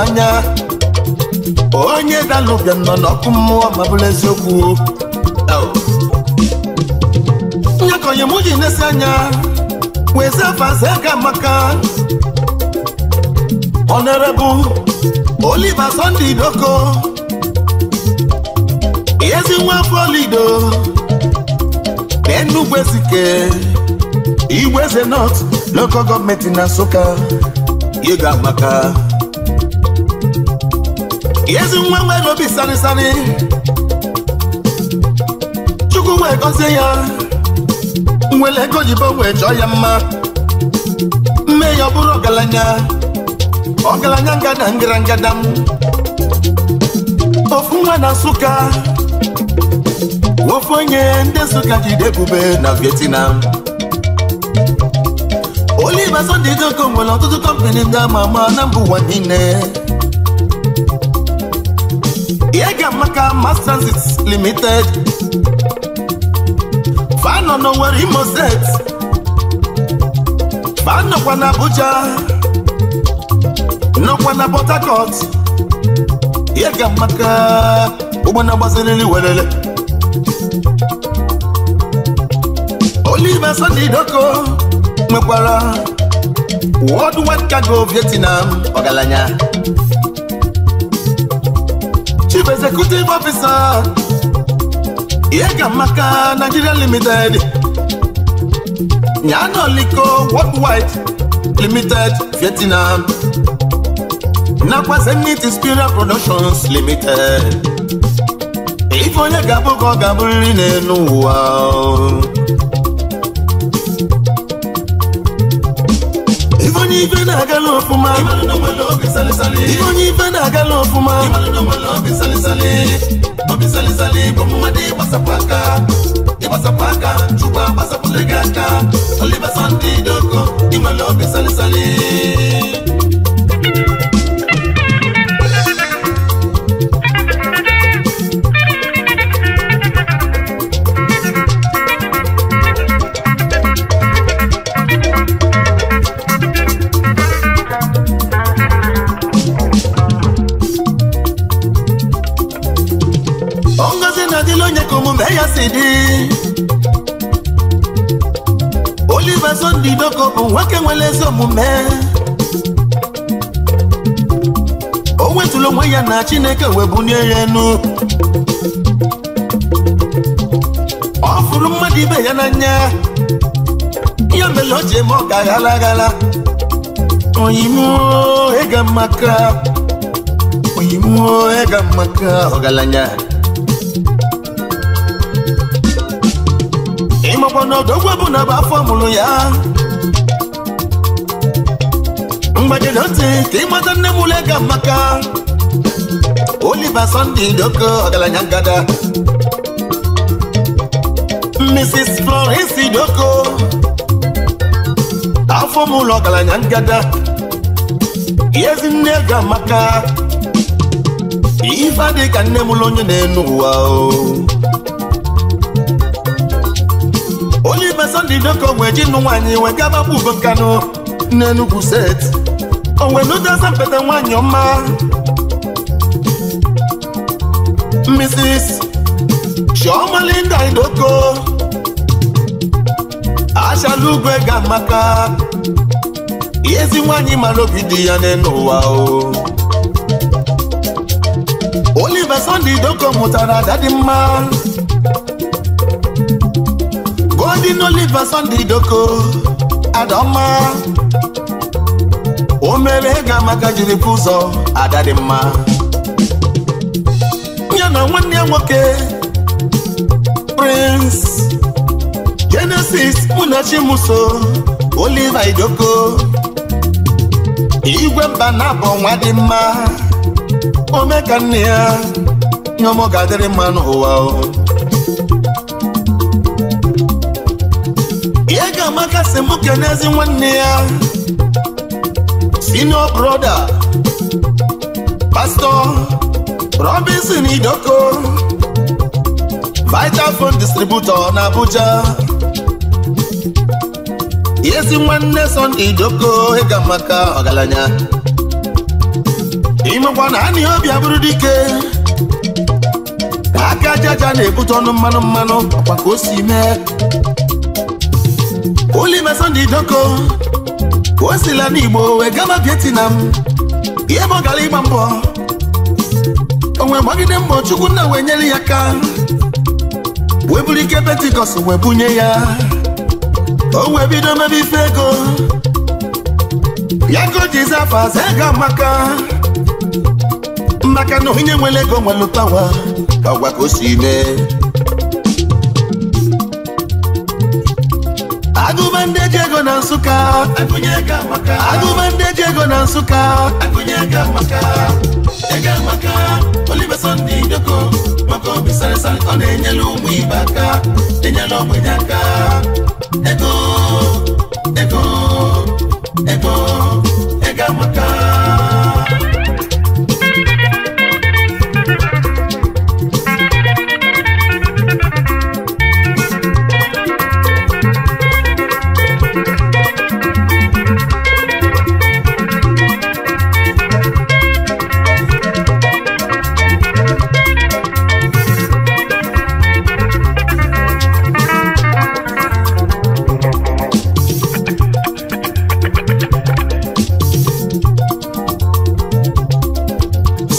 anya onye dalụbịa nọ n'ọkụ mmụọ ma bụrụ eziokwu nyakonye mụ ji na-esi anya wezfazaga amaka ọnerebụ Oliver Sunday Doko ezi nwa na Enugu Igweze nọt local gọọmenti na Nsụka ịga amaka ezi nwa nwe n'obi sari chukwu wee gọzie ya nwere ego oyibo nwee chọọ ya mma mme ya ọ bụrụ ọgaranya ọgaranya ngada ngara ngada m ofu nwa na Nsụka ofu onye ndị Nsụka jide bube na Vietnam Oliver dị Ojoko nwere ọtụtụ kọmpani ndị ama ama na mbụ ụwa niile maka mass transit limited fanọ n'Owerri Imo State fanọkwa na Abuja nọkwa na Port Harcourt ya ga maka ụgbọ na-agbaziriri welele Oliver Sunday Doko nwekwara Worldwide Cargo Vietnam ọgaranya chief executive officer ihe ka maka Nigeria limited Nyano Liko Worldwide limited Vietnam nakwa Zenith Productions limited ife onye ga-abụ ka ọ ga n'elu ụwa ife onye ife na aga n'okpuma. ibonyi vendaka lofuma obisalisali bomumadi basapaka ibasapaka cuba basapulegaka olibasanti doko imalo bisalisali Chibuba Sunday ndị bụ nwoke nwere ezi omume o wetụrụ onwe ya na Chineke wee bụ ya enu ọ fụrụ mmadụ ibe ya n'anya ya mere o ji eme ọ ka ghara aghara oyimuo ịga maka oyimuo ịga maka ọgaranya ọnọdụogwe bụ na bụ afọ mụrụ ya mgbajiri ntị ka ịmata nne m ule ga maka Oliver Sunday Doko ọgaranya ngada Mrs. flores Doko afọ m ụlọ ọgaranya ngada ezi nne ga maka ife dị ka nne m onye na-enu ụwa o na Sunday Doko nwe nwaanyị wee gaba Ugo Nkanu n'Enugwu set onwe n'ụdịaza mpete nwaanyị ọma Mrs. Chioma Linda Idoko achala ugwe ga maka ezi nwaanyị mara obi di ya n'ụwa o Oliver Sunday mụtara ada mma ndị n'oliva Sunday Doko Adoma o mere ga jiri ụzọ ada dị mma ya na nwanne nwoke Prince Genesis Munachi Chimuso, Oliver Idoko igwe mba na-abụ nwa dị mma ome ka nne ya nyomọ ga mma n'ụwa Amaka si mụ kenezi nwanne ya senior broda, pastọ, Robinson Idoko Vitaphone distributor na Abuja ezi nwanne Sunday Idoko ịga maka ọgaranya imekwa na anị obi abụrụ dike aka jaja na-ebute ọnụ mmanụ mmanụ ọkwa ka o si mee Oliver Sunday Joko o sila n'Igbo wee Vietnam ihe ọ gara ịgba mbọ onwe gbagide mbọ Chukwu nna wee nyere ya ka wee ike Pentikọst wee bunye ya o bido mebe ife ego ya go maka maka na onye nwere ego nwere ụtawa agwa ka agụba ndị eji ego na nsụka agụba ndị eji ego na nsụka ego amaka Oliver Sunday Idoko ego obi sarịsa ọ na-enyere ụmụ ibe aka enyela aka ego ego ego ego amaka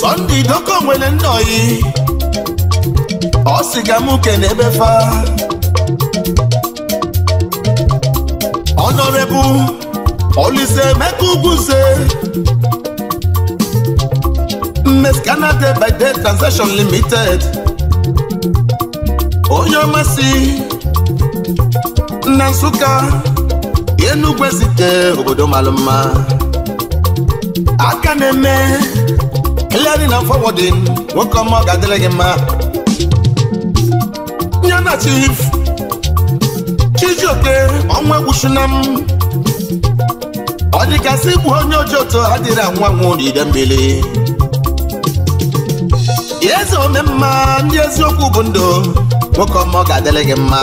Sunday idoko nwere nnoyi ọ sị ga m kene ebe fa Honorable Olise Emeka Ugwuze Mmes Canada by Day Transaction Limited onye si na Nsụka Enugwe site obodo malụ mma aka na-eme hịgharị na fọwọdịn nwoke ọma ọ ga-adịrị gị mma nye na chief chijioke ọnwa egwuchuna m ọ dịkasị igbu onye oji otu adịrị anwa anwụ n'ide mmiri eze ome mma ndị eziokwu bụ ndụ nwoke ọma ọ ga-adịrị gị mma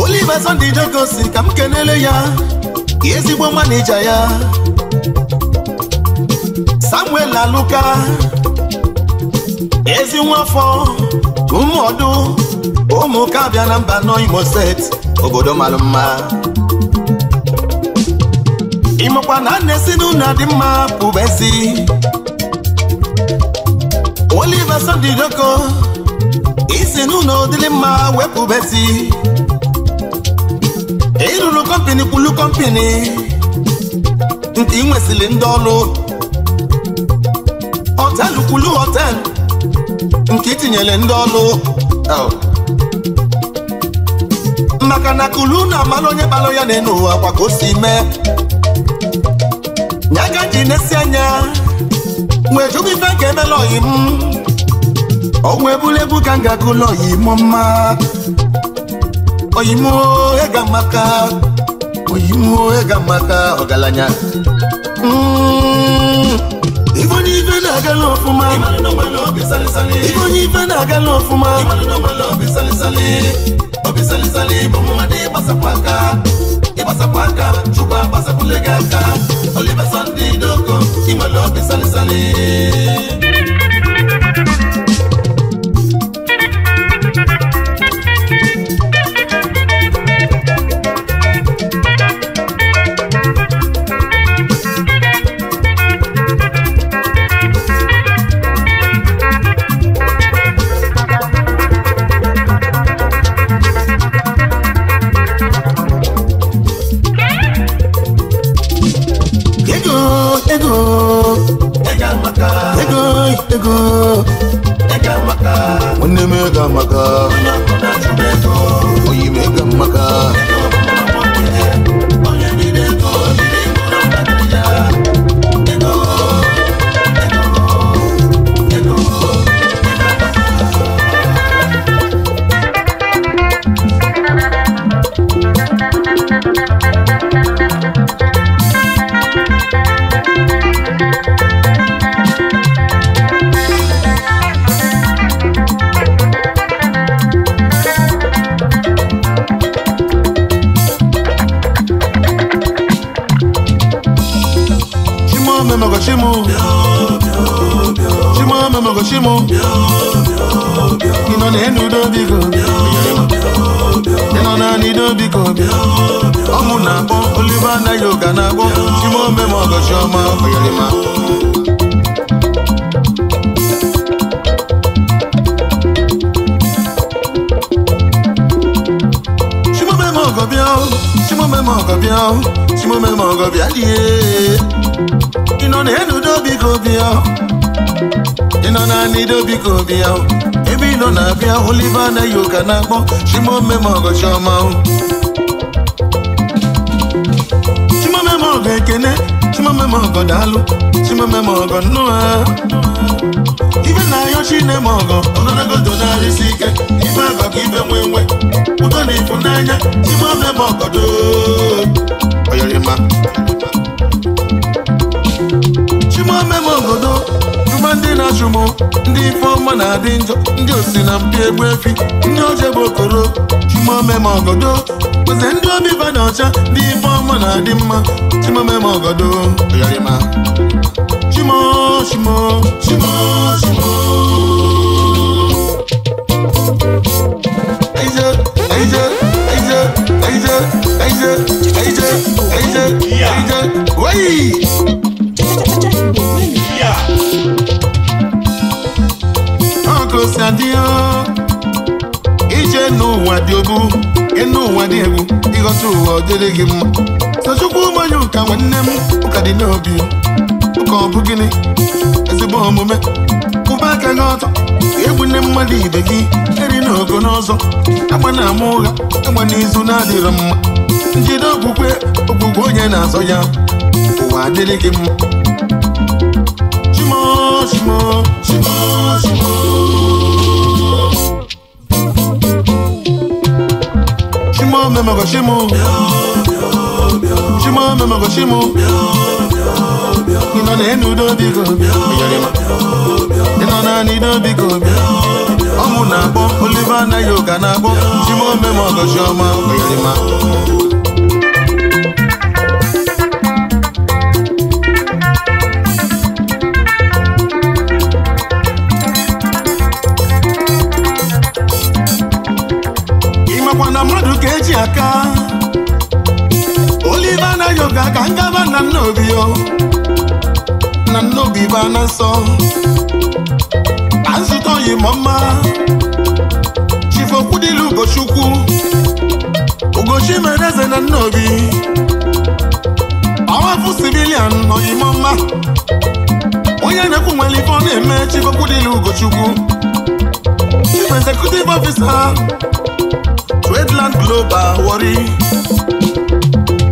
Oliver Sunday Jegor si ka m kenele ya ezigbo manija ya Samuel Aluka ezi nwafọ ụmụọdụ ụmụka abịa na mba nọ Imo set obodo mara mma ịmakwa na nne si n'ụlọ dị mma pụbesi Oliver Sodidoko isi n'ụlọ dịrị mma wepụbesi ịrụrụ kọmpini kwulu kọmpini nke ị nwesịrị ndị ọrụ Kwulu hotel nke itinyere ndị ọlụ oh. maka na Kulu na amara onye balụ ya na-enu ụwa kwa ka o si mee nyaga ji na anya wee jụbụ ife ka emela oyi m ọgwụ ebulebu ka m ga ụlọ oyi m mma oyi m ega maka oyi ega maka ọgaranya mm. naga lofuma ikonyiva naga lofuma obisalisali bomomadi basakwaka ibasakwaka cuba basakulegaka olibasandi doko imalo obisalisali ọbịa chimume ma ọgọ bịa lie ị nọ na enudo biko bịa ị nọ na anido biko bịa ebe ị nọ na-abịa oliva anaghị ụka na-akpọ chimume ma ọgọ chiọma chimume ma ọgọ ekene chimume ma ọgọ daalụ chimume ma ọgọ nnụa ibe na ayọ chine ma ọgọ ogologo donarịsi ike azọ ka ibe nwe nwe ụtọ na ịfụnanya ime ọbịa ma ọgọdọ oyerima chimome ma obodo chụma ndị na-achụmụ ndị ifeọma na-adị njọ ndị osi na mpi egbu efi ndị oje bụ okoro chimome ma ogodo oze ndị obiba na ọcha ndị ọma na-adị mma chimome ma ogodo oyerima chimo chimo chimo chimo Aïe, aïe, ije dị obu, ịnụ ụwa dị egwu, ịghọta ụwa ọ gị mma. mmanya ụka nwanne m ụka ụka gịnị, ezigbo aka ọtọ, mmadụ ibe gị, eri n'ogo n'ọzọ, na ama ụgha. kama n'izu na-adịrị mma njide okwukwe okwukwe onye na-azọ ya ụwa adịrị gị mma chimo chimo chimo chimo chimo chimo chimo chimo ị nọ n'elu udo biko ị nọ naanị biko ọmụ na-akpọ oliva anaghị ụka na-akpọ chimome ma ọgọchi ọma oyarima na mmadụ ka eji aka oliva anaghị ụka ka ngaba na nna obi na n'obi bụ na nsọ na nzụta oyi ma mma ugochukwu ugochi mere eze na nnobi ọwafụ civilian oyi ma mma onye na-ekwu nwere ife ọ na-eme chifokwu dịlu ugochukwu chief executive officer Tradeland Global Warri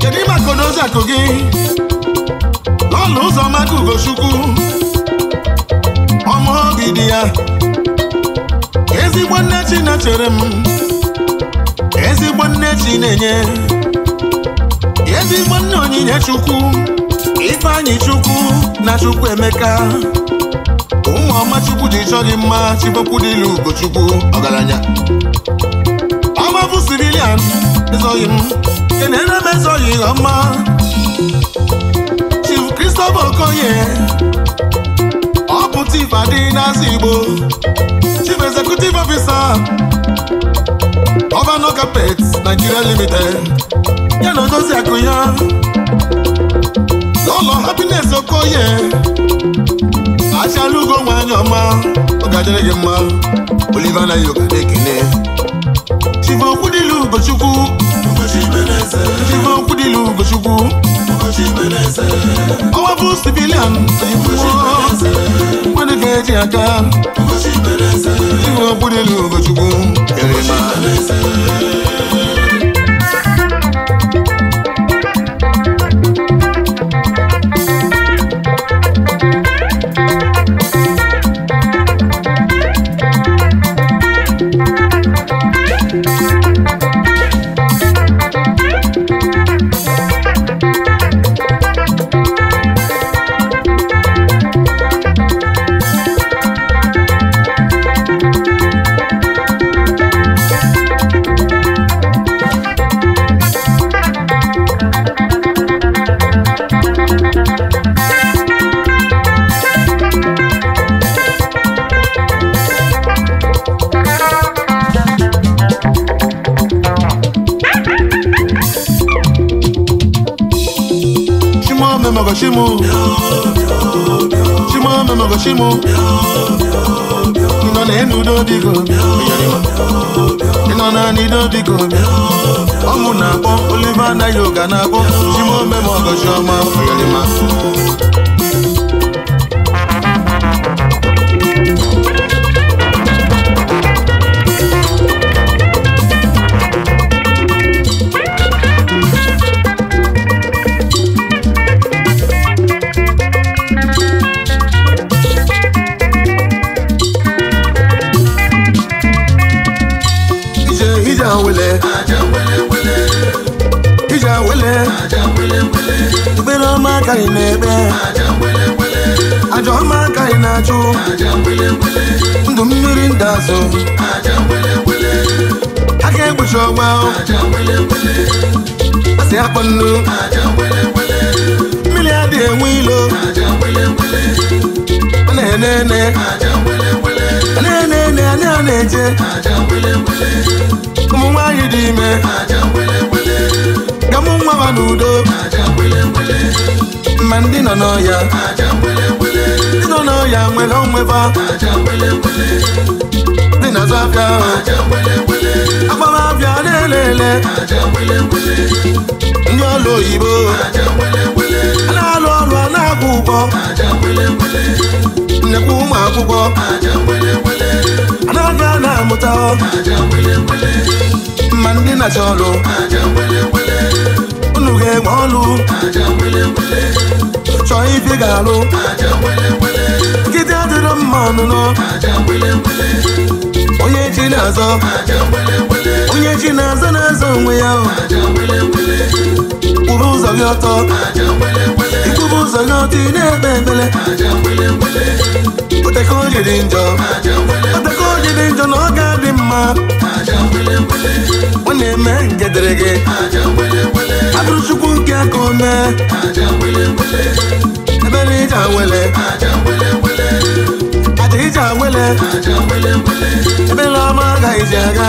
kedu maka ozi akụ gị ọnụ ụzọ maka ugochukwu ọma obi ya ezigbo nne chi na-echere m ezigbo nne chi na-enye ezigbo nne onyinye chukwu ifeanyị chukwu na chukwu emeka ụmụ ọma chukwu ji chọọ gị mma chibokwu dịlu ugochukwu ọgaranya ọbabụ sirilian ezoghị m kenere m ezoghị ọma Sobokoye ọbụ Chief Adịnasị Igbo Chief Executive Officer Governor Carpet Nigeria Limited ya na Odozi Akuya n'ụlọ Happiness Okoye achalugo nwanyị ọma oge adịrị gị mma Oliver na yoga na-ekene Chief Okwudilu Ugochukwu Chief Okwudilu you. civilian nwanne ga-eji aka iwe okpudelu Ugochukwu mego shimu Shimome mego shimu Ino na enu do biko Ino na ni do na-akpọ Oliver na yoga na-akpọ Shimome mego shioma Oyolima aka ị na-ekpe ajọ ọma aka ị na-achụ ndụ mmiri ndị azụ aka egbuchi ọgba asị akpọ nnu mmiri adịghị enwe ilo A na-enene A na-enene anya na-eje ụmụ nwaanyị dị ime ka mụ nwa n'udo ma ndị nọ n'ọya ndị nọ n'ọya nwere onweba ndị na-azụ abịa agbamabịa na-ele ndị ọlụ oyibo a na-alụ ọrụ a na agwụ ụgwọ nnekwu ụmụ akwụkwọ anaghị na amụta ma ndị na-achọ ọlụ unu ga-enwe ọlụ chọọ ibe ga-alụ nkịta adịrọ mma ọnụnụ onye chi na-azọ onye chi na-azọ na-azọ onwe ya kwuru ụzọ gị ọtọ ikwuru ụzọ gị ọtọ ị na-ekpe ebele. odeka onye dị njọ odeka onye dị njọ na ọ ga-adị mma ọ na-eme nke dịrị gị adụrụ chukwu nke aka o mee ebere ije awele aja ije awele ebere ọma agaghịzi ji aga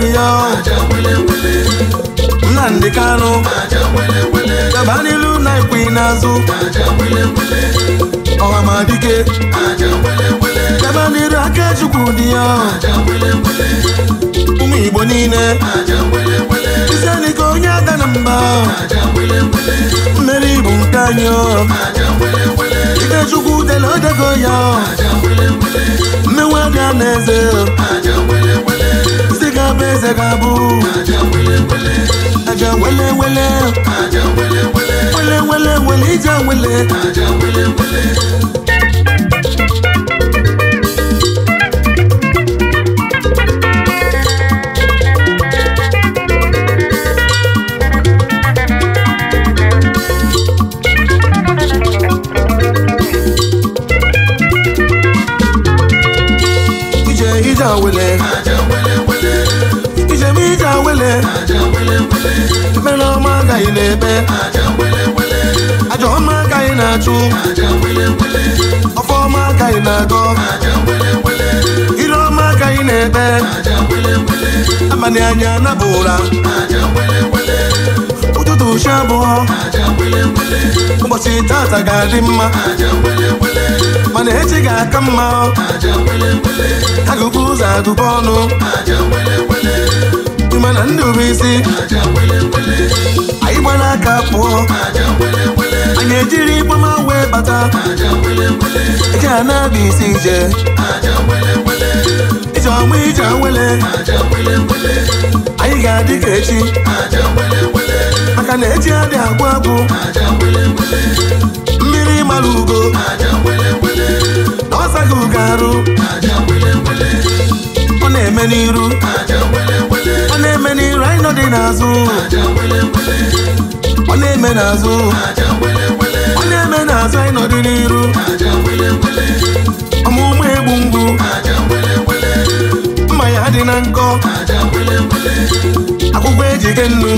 dị ya Nnamdi Kanu gabanilu na ekwe n'azụ ọhamadike gabaniru Akachukwu dị ya ụmụ Igbo niile isenike onye aga na mba mmeri bụ nke anyị Ikechukwu tele odego ya mmenwe aga na eze abụ eze ga-abụ aja nwele nwele nwele nwele. wele ije nwele. na-eme ajọ ọma agaghị na-achụ ọfọ ọma agaghị na-agọ ire ọma agaghị na ebe abalị anya anabụ ụra ụtụtụ chi abụọ ụbọchị tata ga-adị mma mana echi ga-aka mma agụgụ ụzọ agụba ọnụ mkpi mana ndụ bụ isi anyị gbara aka pụọ anyị ejiri ikpoma wee bata eji a na isi ije ije ọma ije anyị ga-adị ka echi maka na echi adị agwụ agwụ mmiri mara ugo na ọsa ugo arụ ọ na-eme n'iru ọ na-eme n'iru anyị nọ dị n'azụ ọ na-eme n'azụ ọ na-eme n'azụ anyị nọ dị n'iru ọmụmụ egbu mgbu mma ya dị na nkọ akwụkwọ ejike nnu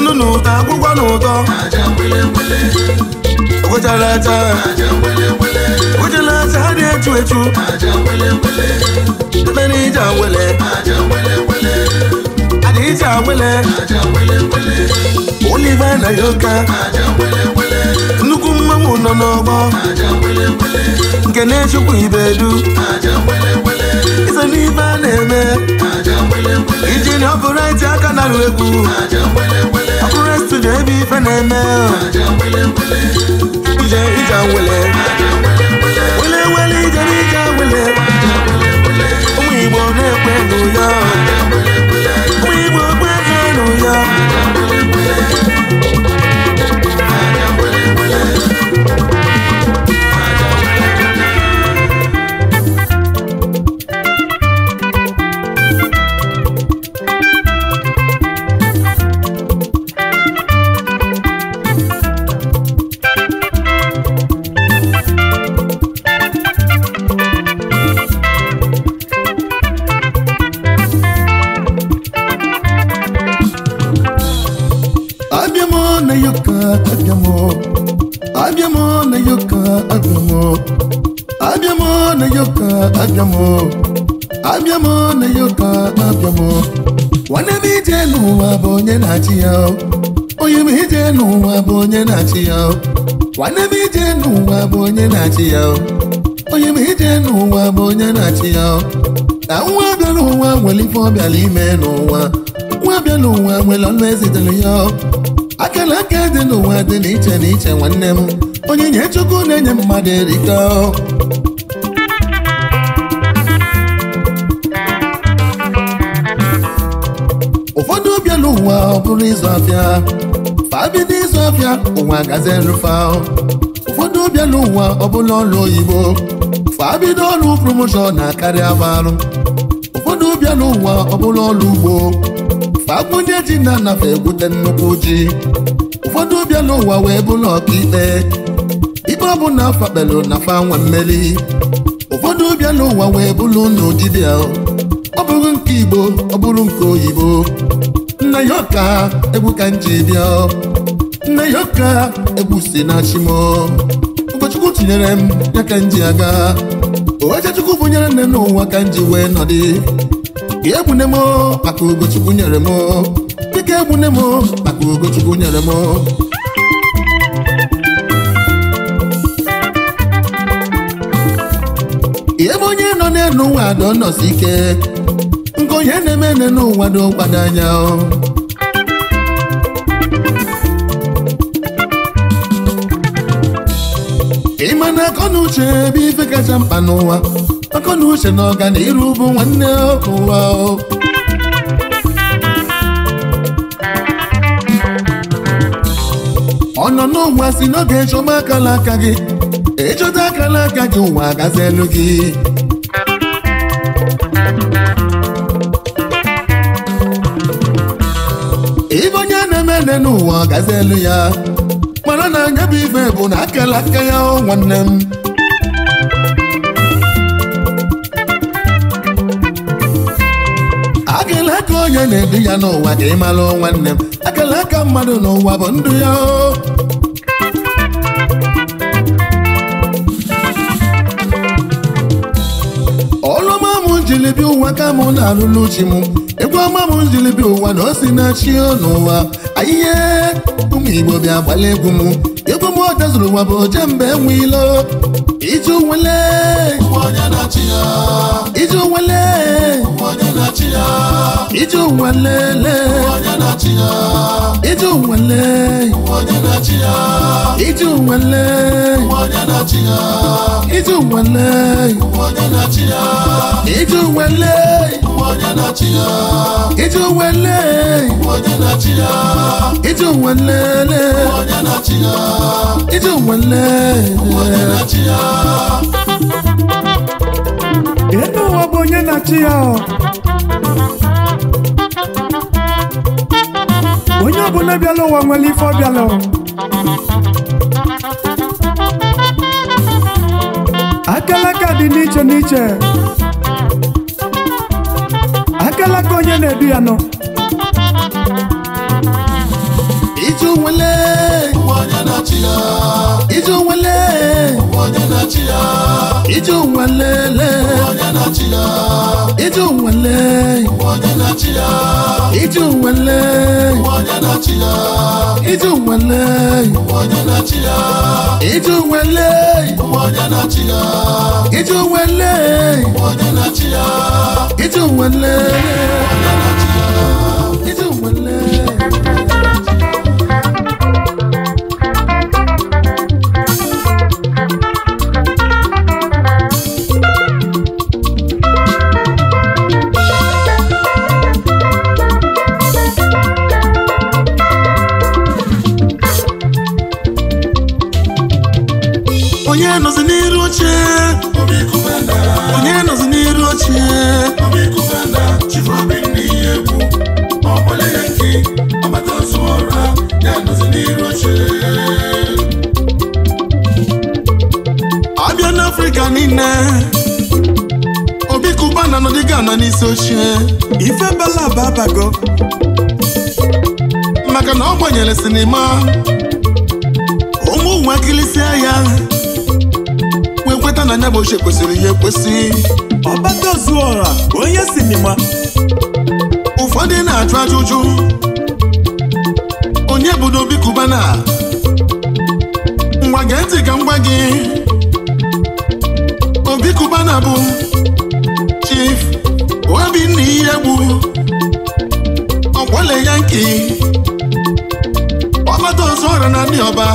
nnu na ụtọ akwụkwọ na ụtọ ogojalaja echu echu emere ije awele ada ije awele oliva na yoka nnukwu mmanwụ nọ n'ọgbọ nke na-echukwu ibedu iso n'ife a na-eme iji na ọbụrụ eti aka na nwele egwu ọbụrụ studio ebe ife na-eme ije ije awele wele ije n'ije wele ụmụ Igbo na-ekwe n'ụyọ ụmụ Igbo kwe n'ụyọ abịam abịam na-enye ụtọ abịam nwanne m ije n'ụwa bụ onye na-achị ya onye m ije n'ụwa bụ onye na-achị ya nwanne m ije n'ụwa bụ onye na-achị ya onye m ije n'ụwa bụ onye na-achị ya na nwa abịa n'ụwa nwere ife ọ bịara ime n'ụwa nwa abịa n'ụwa nwere ọnụ ezitere ya akara aka dị n'ụwa dị n'iche n'iche nwanne m onye nye chukwu na-enye mmadụ erika n'elu ụwa ọ bụrụ ịzụ afịa fabido ịzụ afịa ụwa gazi nrụfa ụfọdụ bịa n'ụwa ọ bụla ọrụ oyibo fabido ọrụ promoshọn na karịa marụ ụfọdụ bịa n'ụwa ọ bụla ọrụ ugbo fagbunye ji na anafe egwute nnukwu ji ụfọdụ bịa n'ụwa wee bụrụ ọkaikpe ikpe ọbụla fakpelu na fa nwe mmeri ụfọdụ bịa n'ụwa wee bụla ụnụ dibịa ọ bụrụ nke igbo ọ bụrụ nke oyibo Nna ya ọka egwu ka nji bịa Nna ya ọka egwu si na chimo ụkọchukwu tinyere m ya ka nji aga bụ nyere nne n'ụwa ka nji wee nọdị ka egbune m maka ugochukwu nyere m dịka egbune m maka ugochukwu nyere m ebe onye nọ n'elu ụwa dọ nọsi ike nke onye na-eme n'ụwa dọ mkpado anya na uche ebe ife kacha mkpa n'ụwa akọnuche na ọganiru bụ nwanne ụwa ọ nọ n'ụwa si n'oge ịchọba akala aka gị ịchọta e akala aka gị ụwa agazi elu gị ibe onye na-eme n'ụwa agazi elu ya onye bụ ibe bụ na akala aka ya nwanne m akala aka onye na-edu ya n'ụwa ka ị mara nwanne m akala aka mmadụ n'ụwa bụ ndụ ya o ọma m jiri ụwa ka m na-alụlụ chi m egwu ọma m jilibi ụwa na o si na chi n'ụwa ahịhịa ụmụ Igbo bịa gbala egwu m zụrụ ụwa bụ oje mgbe enwe ilo iju nwele iju nwele iju nwelele iju nwele iju nwele iju nwele nwele nwele elu ụwa bụ onye na-achị ya onye ọbụla bịala ụwa nwere ife ọ bịala ka dị n'iche n'iche akalaka onye na-edu ya nọ ije onwele ije onwelele ije onwele ije onwele ije onwele ije onwele ije onwele ije onwele ije onwele nne obi kuba na anọ n'isi oche. ife belaba abago maka na ọ gbanyere sinima ụmụ nwa kilisi ya wee kweta na anya bụ ochie kwesịrị ya ekwesị ọbata zuọra onye sinima ụfọdụ na-ajụ ajụjụ onye bụ na obi kuba na ngwa ntị ka m gị Obi Cubana bụ Chief Obinna ya nke Yankee ọzọ ọrịa na ndị ọba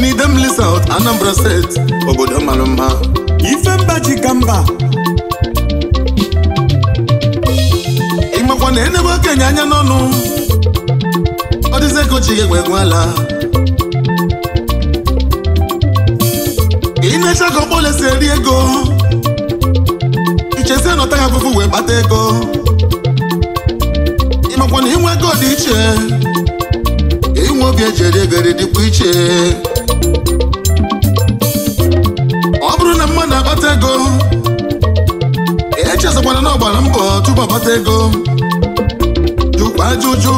n'Idemili South Anambra set obodo mara mma Ifemba ji ka mba ịmakwa na enebe okenye anya n'ọnụ ọ dịzi ego ji ala imecha ka Ogbole si eri ego ichesi nọta ya afụfụ wee kpata ego ịmakwa na inwe ego dị iche inwe obi eji eri ego dịkwa iche ọ bụrụ na mmadụ akpata ego echezakwana na ọgbara gbara mbọ tupu akpata ego jụkwa ajụjụ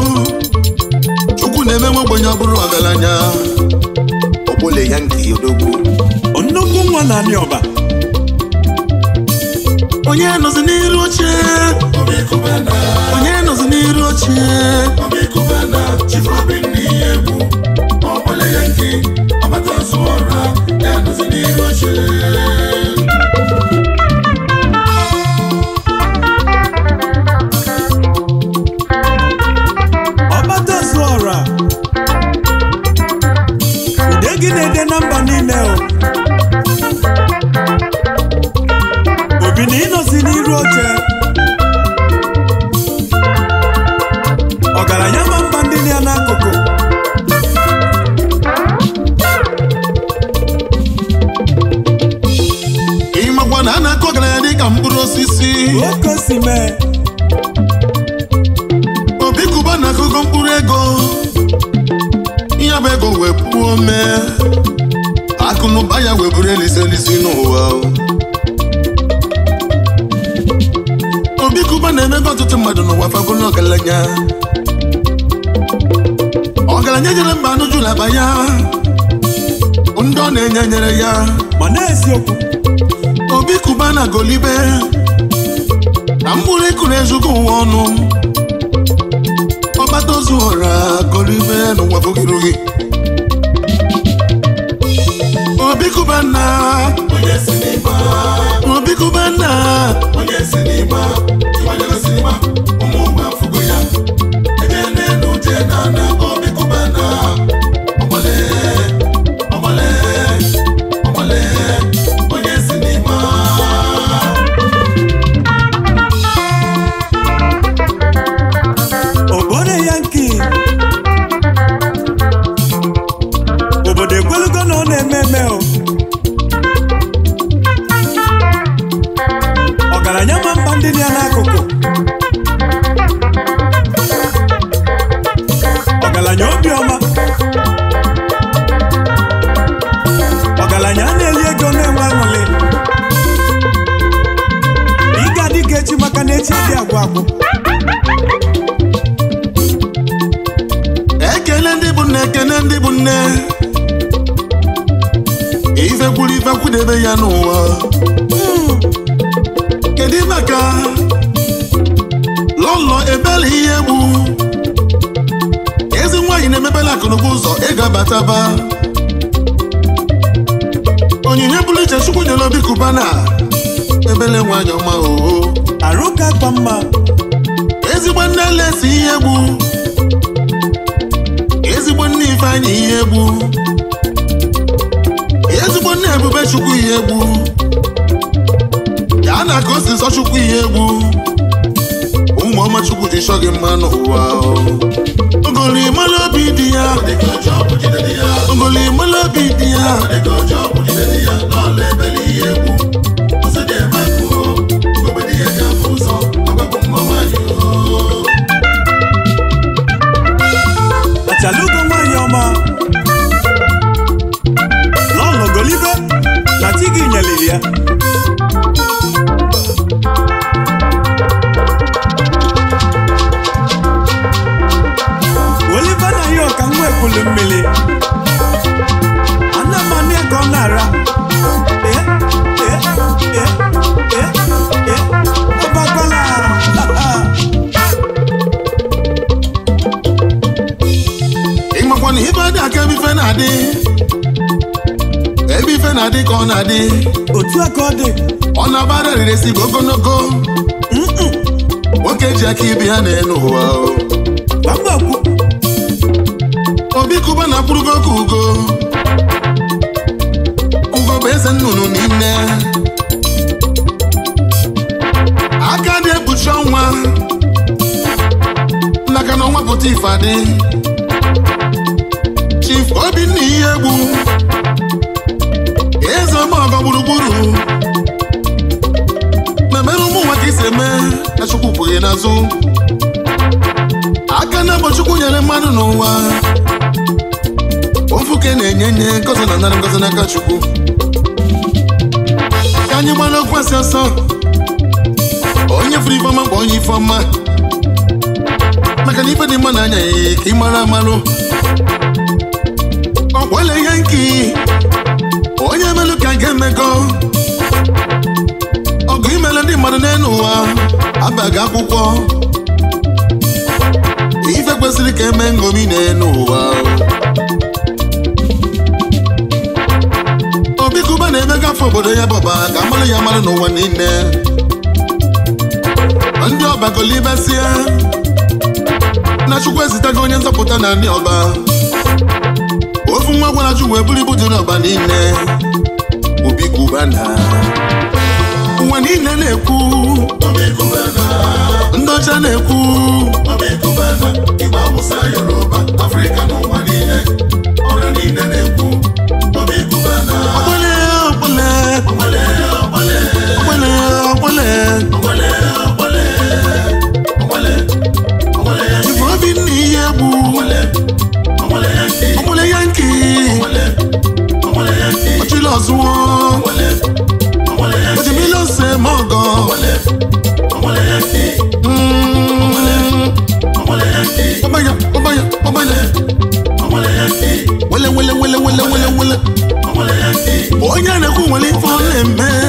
chukwu na-eme nwa ogbenye ọ bụrụ ọgaranya Ogbole ya nke odogwu nwa na anị ọba onye nọzi n'iru oche onye nọzi n'iru oche ọbele ya nke ọbata ọrụ ya n'iru oche agolibe na mkpụrụ ịkụ ezugo uwe ọnụ ọgbata ozu ghọrọ agolibe n'ụwa bụgirogi na Chukwu ezitego onye nzọpụta na ndị ọba ofu nwa gwara Chukwu eburu ibu dị n'ọba niile obi kubana ụwa niile na-ekwu ndị ọcha na-ekwu Yoruba Afrịka house wọn. Òjì mi ló ṣe mọ́ gan. Ọmọya ọmọya ọmọya. Wẹ́lẹ́ wẹ́lẹ́ wẹ́lẹ́ wẹ́lẹ́ wẹ́lẹ́ wẹ́lẹ́. Ó yára kó wọlé fọ́lẹ̀ mẹ́ẹ́.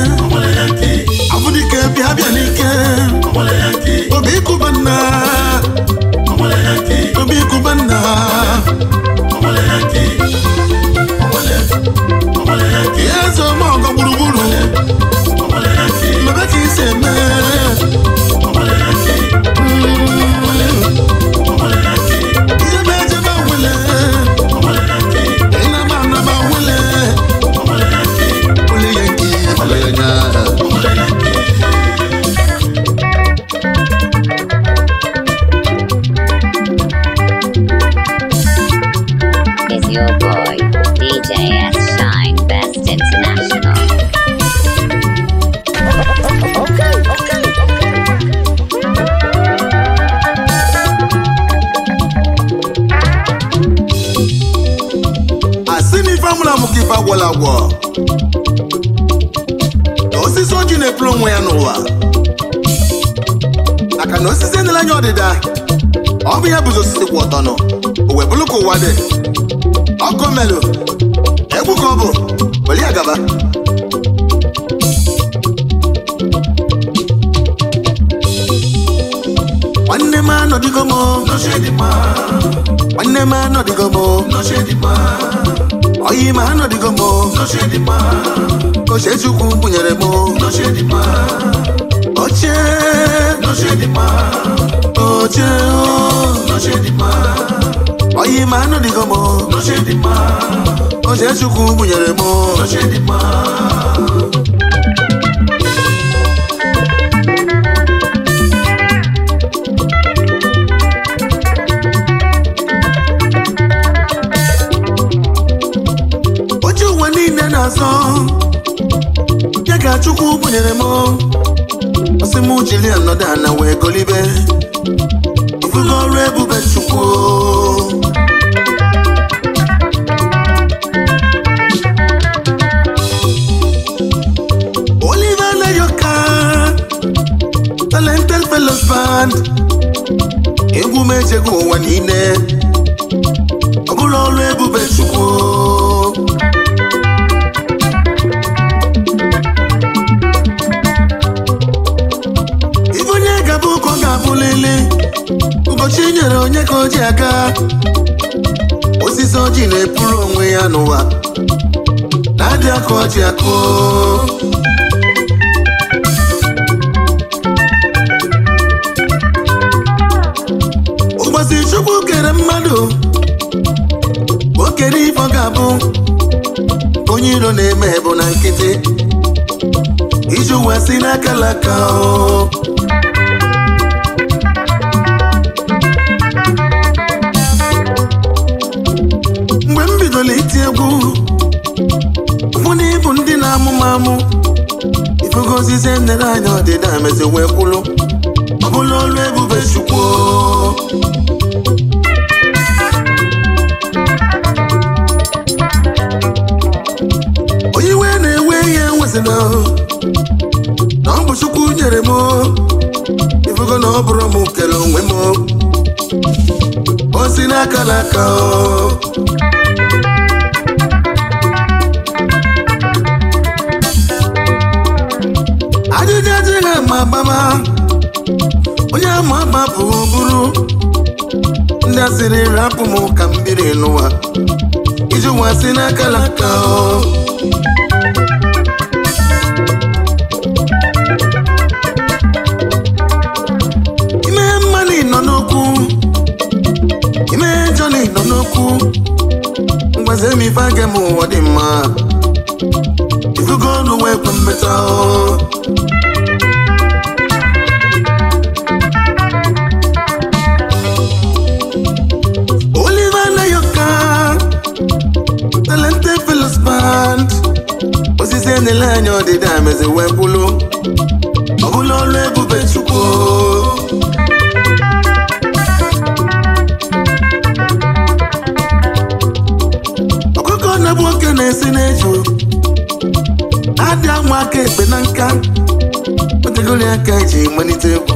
ụwa dị ọkụ melụ egwu ka ọ bụ nwanne m anọdịgo m nwanne m anọdịgo m oyi m anọdịgo m ochechukwu bunyere m oche oche oche ọyị ma anụ dịgo m oche chukwu gbunyere m oche ụwa niile na-azọ ya ka chukwu gbunyere m ọsị m jiri anọdụ ana wee golibe ifugo ọrụ ebube chukwu egwu m echego ụwa niile ọ bụla ọrụ ebube chukwu ibe onye gaba ụkọ ga-abụlili ụbọchị e nyere onye ka o ji aga osisi ọjị na-epuru onwe ya n'ụwa na-adị aka ọjị akụ na-eme bụ na nkịtị iji uwe si n'akalaka mgbe m bidoro iti egwu mụ na ịbụ ndị na amụmamụ m amụ ifegozizi nere anya ọdịda mezi wee kwulu ọ bụla olu ebube chukwu m na ọ bụ chukwu nyere m ifugo na ọ bụrụ m kele onwe m ozi n'aka n'aka ajụjụ adịghị ama agbama onye ama agba bụ bụrụ ndị asịrị rapụ m ka mbiri n'ụwa iji nwa si n'aka n'aka okwu gwazie m ife aga m ụwa dị mma ifugo olu wee kwe mmeta Oliver Nayoka talented fellows band osisi enele anya ọdịda mezi wee bụlụ ọ bụla ọrụ ebube Chukwu na-esi na-eju adị amụ aka ekpe na nka otegoli aka e ji malite egwu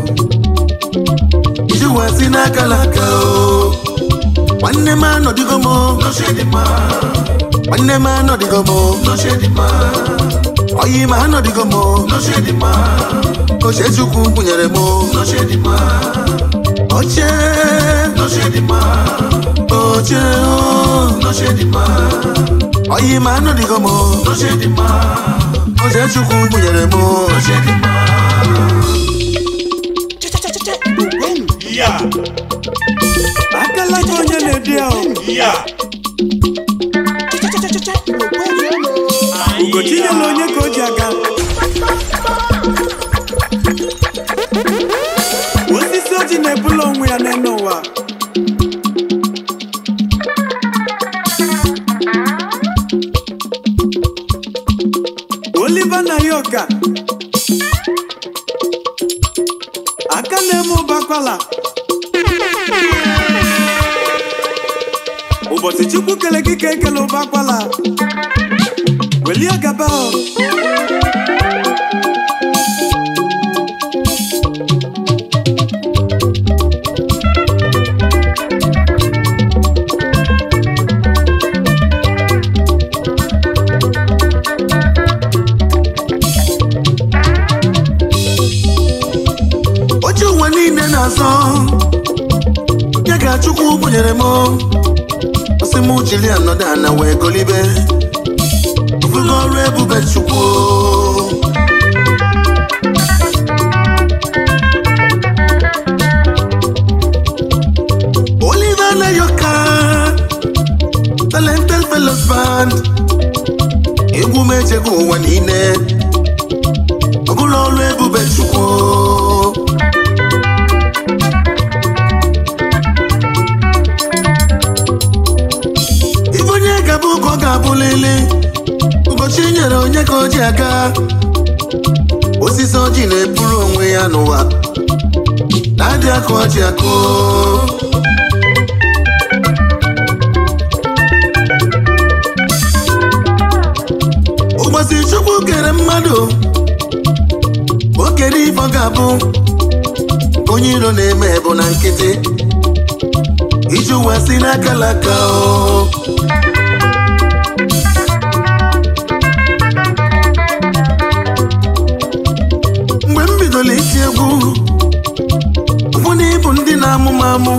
iji ụwa si n'aka laka nwanne m anọdịgo m nwanne m anọdịgo m oyi ma anọdịgo m oche chukwu kwụnyere m oche oche oche oyi ma anụ dịgo m oze chukwu gbunyere onye ka o ji aga osisi oji na-ebula ya n'elu ya aga osisi ọjị na-eburu onwe ya n'ụwa na-adị akụ ọjị akụ ụbọchị chukwu kere mmadụ o kere ịbọga ga-abụ onye iro na-eme bụ na nkịtị iji ụwa si n'akalaka o amụmamụ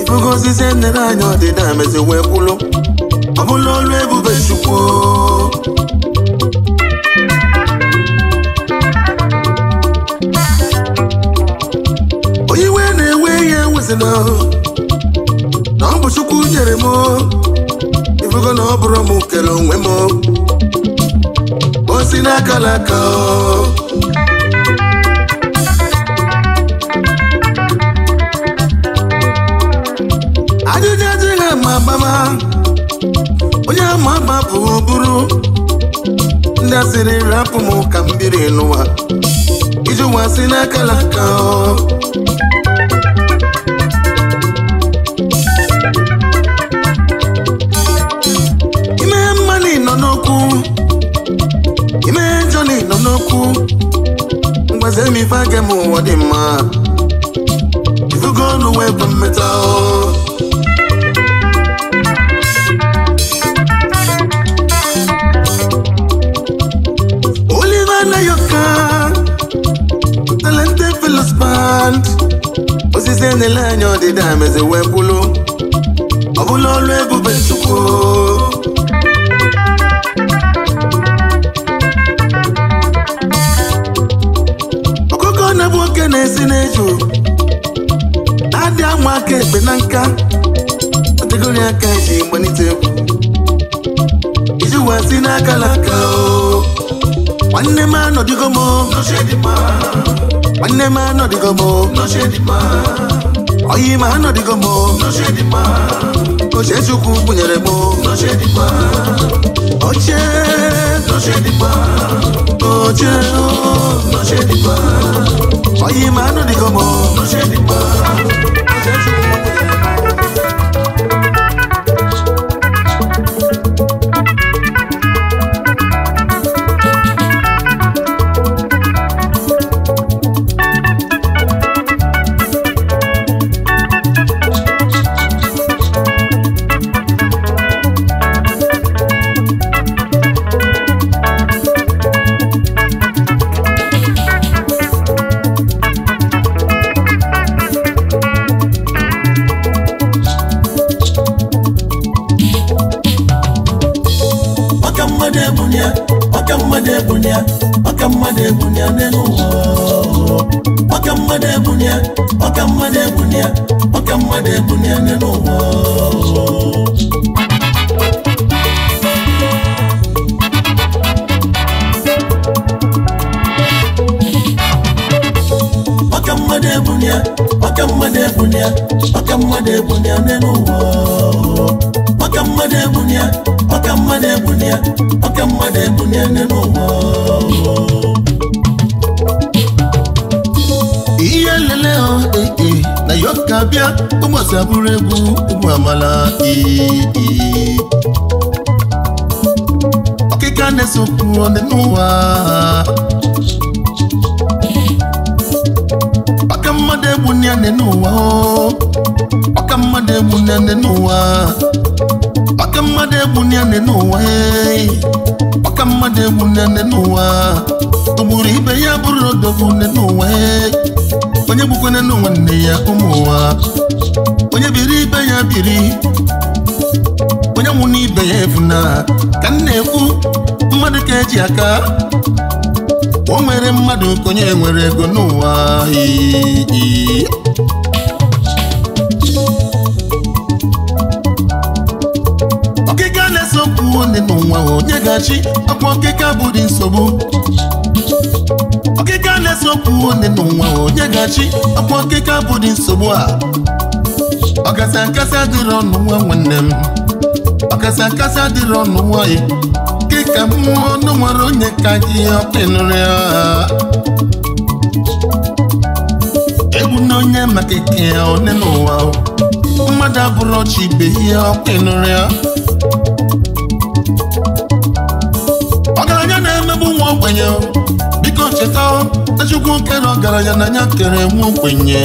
ifugozizi enere anyị ọdịda mezi wee kwụlụ ọ bụla ọlụ ebube chukwu onye iwe na-ewe ihe ewezina na ọ bụ chukwu nyere m ifugo na ọ bụrụ m kere onwe m osi n'aka ọ. onye ama agba bụ bụrụ ndị asịrị rapụ m ka mbiri biri n'ụwa iji ụwa si n'akala aka ime mmanụ nọ n'okwu ime jọni nọ n'okwu mgbaze m ife aga m ụwa dị mma ifugo ọnụ wee bụ mmetọ osisi na-ele anya ọdịda meze wee kwulu ọ bụla ọlụ ebube chukwu ọkụkọ na-ebu oke na-esi na-eju adị ama aka ekpe na nka kategori aka ji gbanite egwu iji wee si n'aka na aka nwanne m anọdịgo m Mane ma no di oh, gomo, no she di ma. Oyi oh, ma no di gomo, no she di ma. O Jesu ku bunyere mo, no she di ma. Oche, no she di ma. Oche, no she di ma. Oyi ma no di gomo, no she di ma. O Jesu ku mmadụ ebunye ọka mmadụ ebunye ọka mmadụ ebunye ne n'ụwa ọka mmadụ ebunye ọka mmadụ ebunye ọka mmadụ ebunye n'ụwa nne ha na yoka bịa ụmụosi abụrụ egwu ụmụ amala ọkịka na-esokwu ọdị n'ụwa ọka mmadụ egbu nne n'ụwa ọka mmadụ egbu nne n'ụwa ọka mmadụ egbu nne n'ụwa ọka mmadụ n'ụwa ibe ya bụrụ odogwu n'ụwa onye gbukwana n'ụwa ya ụmụ onye biri ibe ya biri onye nwụ n'ibe ya evuna ka m na-ekwu mmadụ ka eji aka o nwere mmadụ ka onye nwere ego n'ụwa ọkịka na eso okwu onye n'ụwa onye ga-achị ọkwa ọkịka bụ dị nsogbu Ọkịka a na-esopụ onye n'ụwa onye ga-achị ọkịka okike abụghị nsogbu a ọkasa nkasa adịrị ọnụ nwa nwanne m ọkasa nkasa adịrị ọnụ nwa nwanyị kịka mmụọ ọnụ nwere onye ka gị ọkpịnụrị egwu na onye maka ike ya one n'ụwa mmadụ abụrụ ọchị ibe ihe ọkpịnụrị chukwu nke na ọgaranya na ya kere nwa ogbenye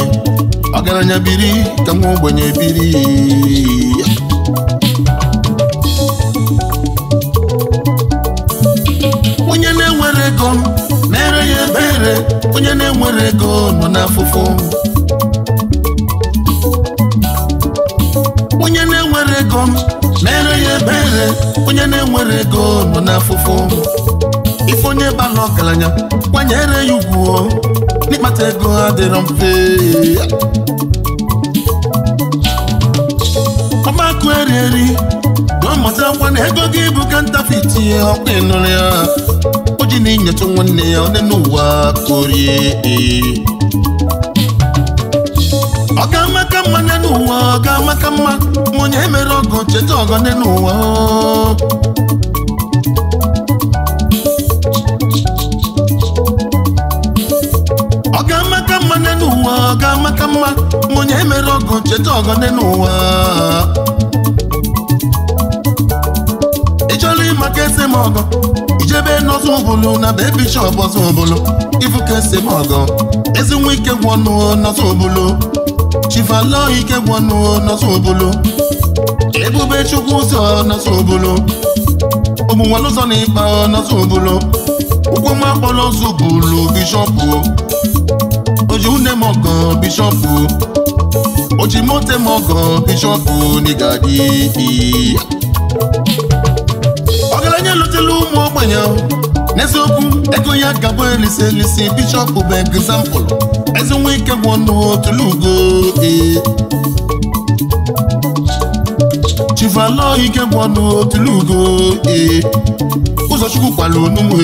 ọgaranya biri ka nwa ogbenye biri onye na-enwere ego na-ere ya ebere onye na-enwere ego nọ n'afụfụ onye na-enwere ego na-ere ya ebere onye na-enwere ego nọ n'afụfụ onye bala ọgaranya kwanyere ya ugwu n'ịkpata ego ha dịrọ mfe ọgbakụ erieri ọmụtakwa na ego gị bụ kantafit ọkụ ịnụrụ ya o ji na-enyocha nwanne ya onye n'ụwa korie ọ ga-amaka mma n'ụwa ọ ga-amaka mma ma onye emere ọgọ cheta ọgọ nne n'ụwa ọ ga-amata mma onye mere ọgụ cheta ọgọdị n'ụwa ịchọrọ ịma ka esi m ọgọ ijebe n'ọzọ ụbụlụ na be bishọp ọzọ ụbụlụ ịfụ ka esi m ọgọ ezi nwa ike gwọnụ n'ọzọ ụbụlụ chifalọ ike gwọnụ n'ọzọ ụbụlụ ebube chukwu ụzọ n'ọzọ ụbụlụ ụmụnwalụzọ na ịkpa n'ọzọ ụbụlụ ụkwụ nwa akpọrọ ọzọ ụbụlụ bishọp oji une mọgọ bishọpụ oji mote bishọpụ n'igadi ọgaranya ụmụ ogbenye n'eziokwu ego ya gabụ elise elise bishọpụ bụ egzampụl eze nwa ike gwụ ọnụ tụlugo chivalo ike gwụ ọnụ tụlugo ee ụzọchukwu kwara onugbu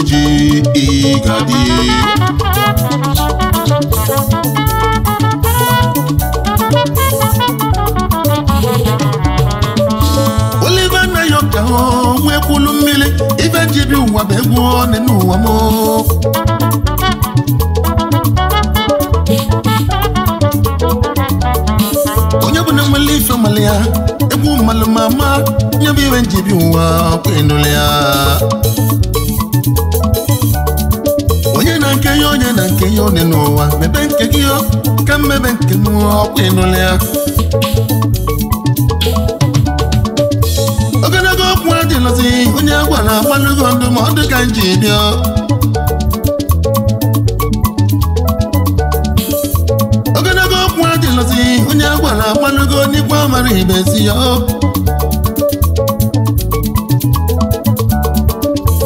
ewulu mmiri ife ji bi ụwa bụ egwu one n'ụwa m onye bụ na nwere ife mmalị ya egwu mmalụ ma ma nye bụ ife ji bi ụwa kwenụlụ ya onye na nke ya onye na nke ya one n'ụwa mebe nke gị ka mmebe nke m ọkwa ịnụlụ ya ngozi onye agwa na agbalugo ndụmọdụ ka nji bịa ogologo okwu adịlọzi onye agwa na agbalugo n'ikwu amara ibezi ya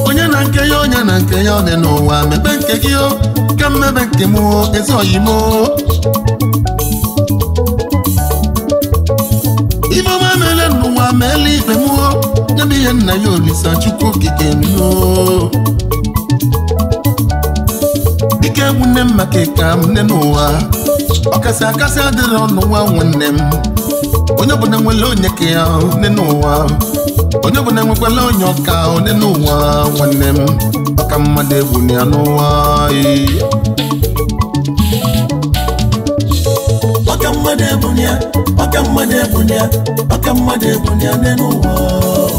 onye na nke ya onye na nke ya ọ dị n'ụwa mepe nke gị ka mmebe nke m ezoghị m ibe ọma meele n'ụwa meele ibe m nwanne ihe nna ya olisa chukwu okike nnuo dịka egwu nne m maka ịka m nne n'ụwa ọkasị akasị adịrị ọnụ nwa nwanne m onye ọbụla nwere onye ka ya nne n'ụwa onye ọbụla nwekwala onye ọka onye n'ụwa nwanne m ọka mmadụ egwu na ya n'ụwa ọka mmadụ egwu na ya ọka mmadụ egwu na ya ọka mmadụ egwu na ya n'ụwa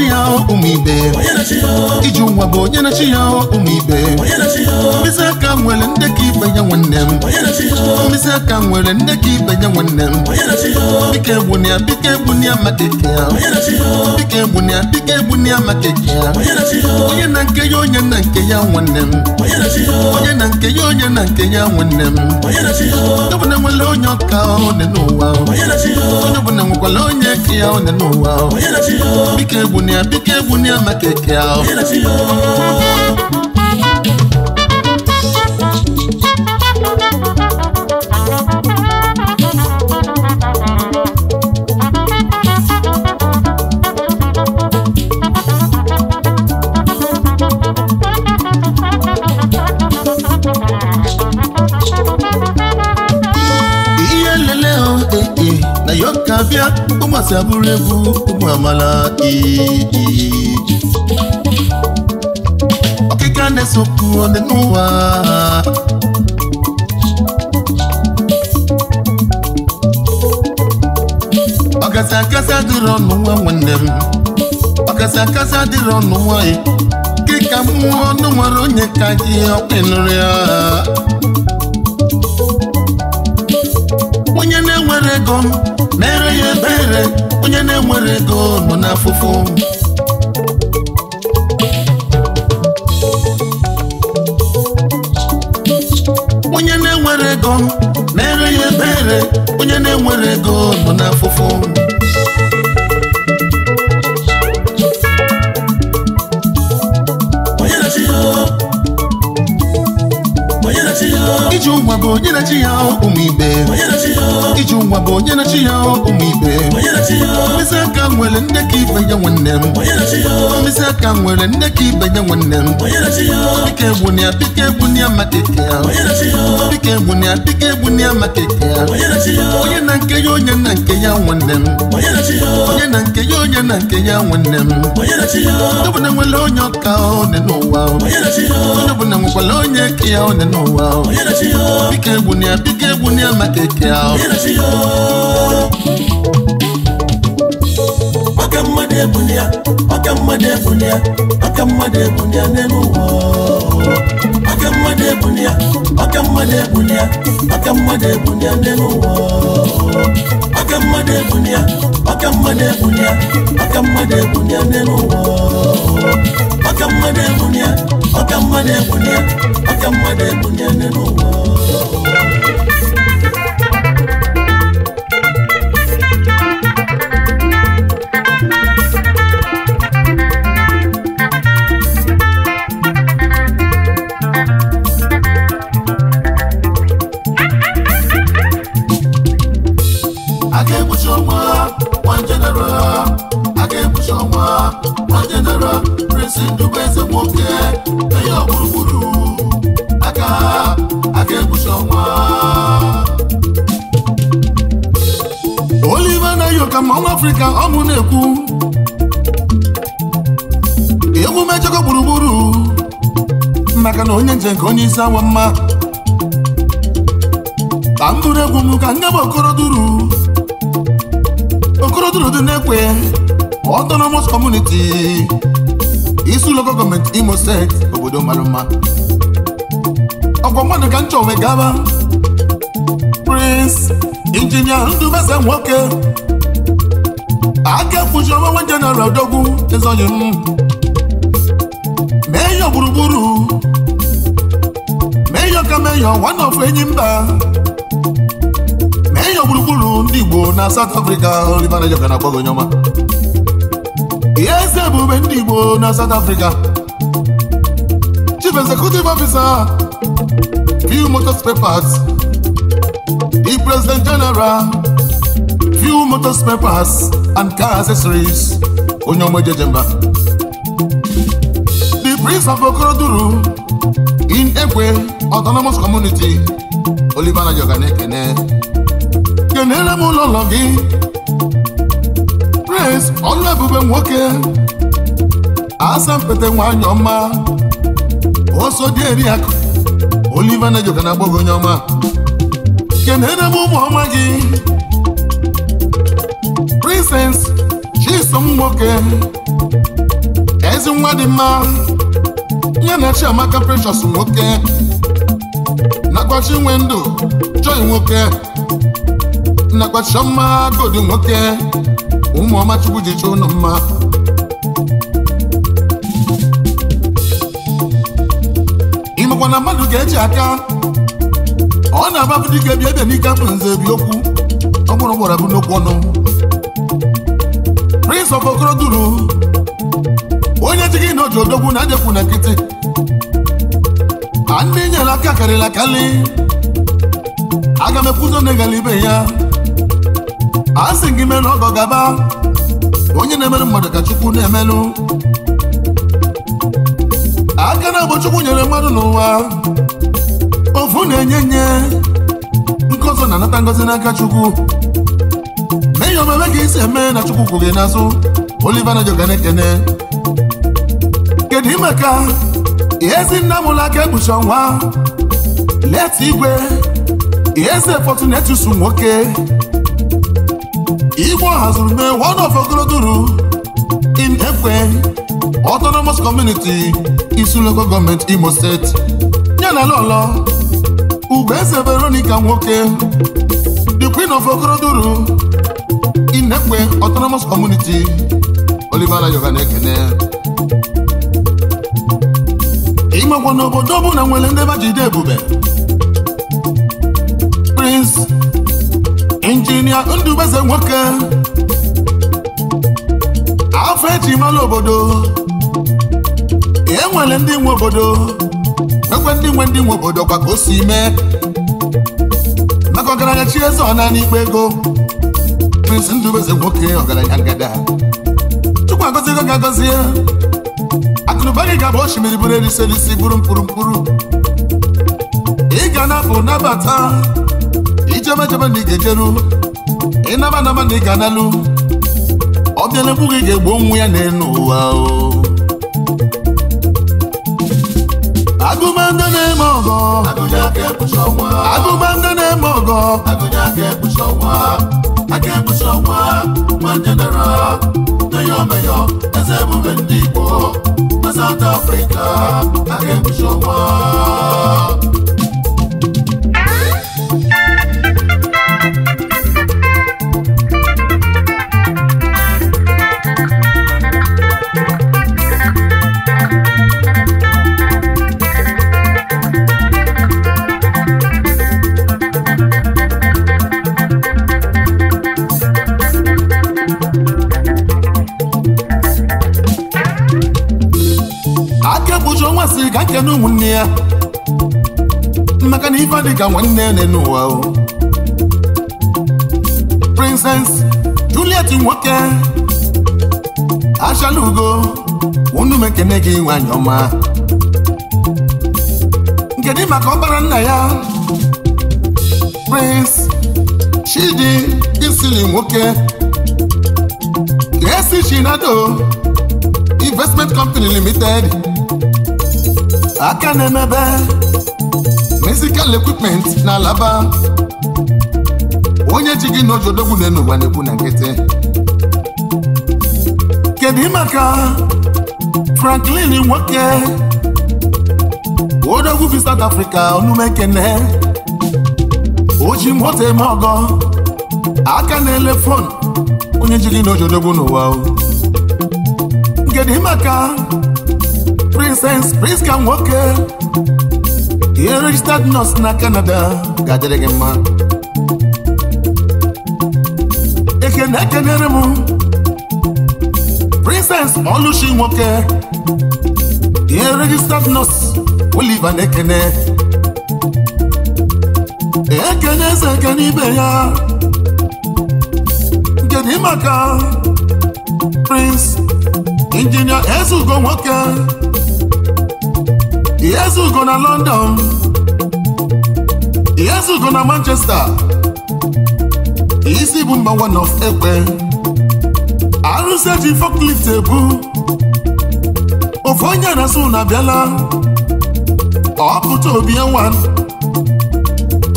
na-echi ya ụmụ ibe iji nwa bụ onye na-echi ya ụmụ ibe mkpịsị aka nwere nne ka ibe ya nwanne m mkpịsị aka nwere nne ka ibe ya nwanne m bike egbuna ya bike egbuna ya maka eke ya bike egbuna ya bike egbuna ya maka eke ya onye na nke ya onye na nke ya nwanne m onye na nke ya onye na nke ya nwanne m onye ọbụla nwere onye ọka one n'ụwa onye ọbụla nwekwara onye ka ya one n'ụwa bike egbuna egwunia biko egwunia maka eke ụmụasị abụrụ egwu ụmụ amala iji ọkịka na-esokwu ole n'ụwa ọkasị akasị adịrị ọnụ nwa nwanne m ọkasị akasị adịrị ọnụ nwanyị kịka mmụọ ọnụ nwere onye ka gị ọkpịnụrụ ya onye na-enwere ego mere ya ebere onye na-enwere ego nọ n'afụfụ onye na-enwere ego mere ya ebere onye na-enwere ego nọ n'afụfụ iji ụwa bụ onye na-echi ya ụmụ ibe iji ụwa bụ onye na-echi ya ụmụ ibe mkpịsị aka nwere nne ka ibe ya nwanne m mkpịsị aka nwere nne ka ibe ya nwanne m dịka egwu na ya dịka egwu na ya maka eke ya dịka egwu ya dịka egwu ya maka eke ya onye na nke ya onye na nke ya nwanne m onye na nke ya onye na nke ya nwanne m onye bụ na nwere onye ọka ọ dị n'ụwa onye bụ na nwekwara onye ka ya ọ dị n'ụwa bike egwu na ya maka eke ahụ ọka mmadụ egwu mmadụ egwu na mmadụ egwu n'elu ụwa aka mmadụ ebunye ọka mmadụ ebunye ọka mmadụ ebunye n'elu ụwa ọka mmadụ ebunye mmadụ ebunye ọka mmadụ ebunye n'elu afrịka ọ mụ na-ekwu ewu mejọkọ gburugburu maka na onye nje nke onye isi awa mma ka m bụrụ egwu m ka nne m okoroduru okoroduru dị na-ekwe autonomous community isi ụlọ gọọmenti imo steeti obodo mara mma ọgwa mmadụ ka m chọwe gaba Prince injinia Ndubeze nwoke aka efuji onwe jeneral dogwu ezoghị m meyọ gburugburu meyọ ka meyọ one of enyi mba meyọ gburugburu ndị igbo na South Afrịka, olivana jọka na agbọghị ọma ihe eze ebube ndị igbo na South Afrịka. chief executive officer few motors papers the president general few motor spare parts and car accessories. Onyomo Jejemba. The Prince of Okoroduru in Ekwe Autonomous Community, Olivana Jogane Kene. Kenere m ụlọ ụlọ gị. Prince Ọlụebube nwoke. Asempete nwanyị Oso dị eri akụ. Olivana Jogane agbọghọ onye ọma. Kenere m ụmụ Innocence Chisom nwoke ezi nwa dị mma nye na Chiamaka Precious nwoke nakwachi ndụ Joy nwoke nakwa Chioma Godi nwoke ụmụọma Chukwu ji chọọ ụnụ mma ịmakwa na mmadụ ga-eji aka ọ na-agbapụ dị ka ebe n'ike abụ nze bi okwu ọ bụrụ gbara n'okwu ọnụ Prince of Okoroduru onye ji gị na oji na ajekwu na nkịtị a ndị nyere aka karịla akali aga m ekwuzo na egala ibe ya a sị gị mere ọgọ gaba onye na-emere mmadụ ka Chukwu na-emelụ aka na abụ Chukwu nyere mmadụ n'ụwa ofu na-enye nye ọzọ na-anata ngozi n'aka Chukwu n'ihi omeme ka isi eme na chukwu kwụ gị n'azụ Oliver Nayoka na-ekene kedu imeka ihezi nna mụla aka ekpuchi ọnwa leta igwe ihezi etusu nwoke igbo hazuru mee one of ogoloduru in ekwe autonomous community isu local government Imo State yana lọlọ ese Veronica nwoke the queen of ogoroduru Inekwe Autonomous Community Oliver Ayoka na-ekene ịmakwa n'obodo ọbụla nwere ndị bajide ebube Prince Injinia Ndubeze nwoke afọ eji mara obodo e nwere ndị nwe obodo ekwe ndị nwe ndị nwe obodo kwa ka o si mee maka ọgaranya chi eze ọna n'ikpe ego osisi ndụ eze nwoke ọgaranya ngada chukwu ga ka ya. akụnụba gị ga-abụ osimiri bụrụ elise n'isi bụrụ mkpụrụ mkpụrụ ị ga na nabata ijebejebe na ị ga-ejeru ịnaba naba na ị ga-analụ ọbịala egwu gị ga-egbu onwe ya n'elu ụwa o agụmanda na-eme ọgọ agụmanda na-eme ọgọ Agụnya ọnwa. aka ebuso ọkwa nwanne nara naya ọmaya eze ndị Igbo na South Africa aka ebuso ga nwanne nne n'ụwa Princess Juliet nwoke achala ugo unu mekene gị nwanyị ọma nkedị maka ọbara nna ya Prince Chidi Isili nwoke ga-esi Chinado Investment Company Limited aka na Musical equipment na Alaba onye ji gị na ojodogwu na n'ụwa na-ekwu na nkịtị kedu maka Franklin nwoke odogwu bi South Africa onumekene oji moto eme ọgọ aka na-ele fon onye ji gị na ojodogwu n'ụwa kedu maka Princess Priska nwoke ihe registered nurse na Canada ga-adịrị gị mma ekene ekenere m Princess Oluchi nwoke ihe registered nurse Oliver na-ekene ekene eze ekene ibe ya kedu maka Prince Injinia Ezugo nwoke Ihezugo na London Ihezugo na Manchester isi bụ mgbanwe nọf ekpe arụsị eji forklift ebu Ofe onye na-asụ na abịala ọ pụta obi ya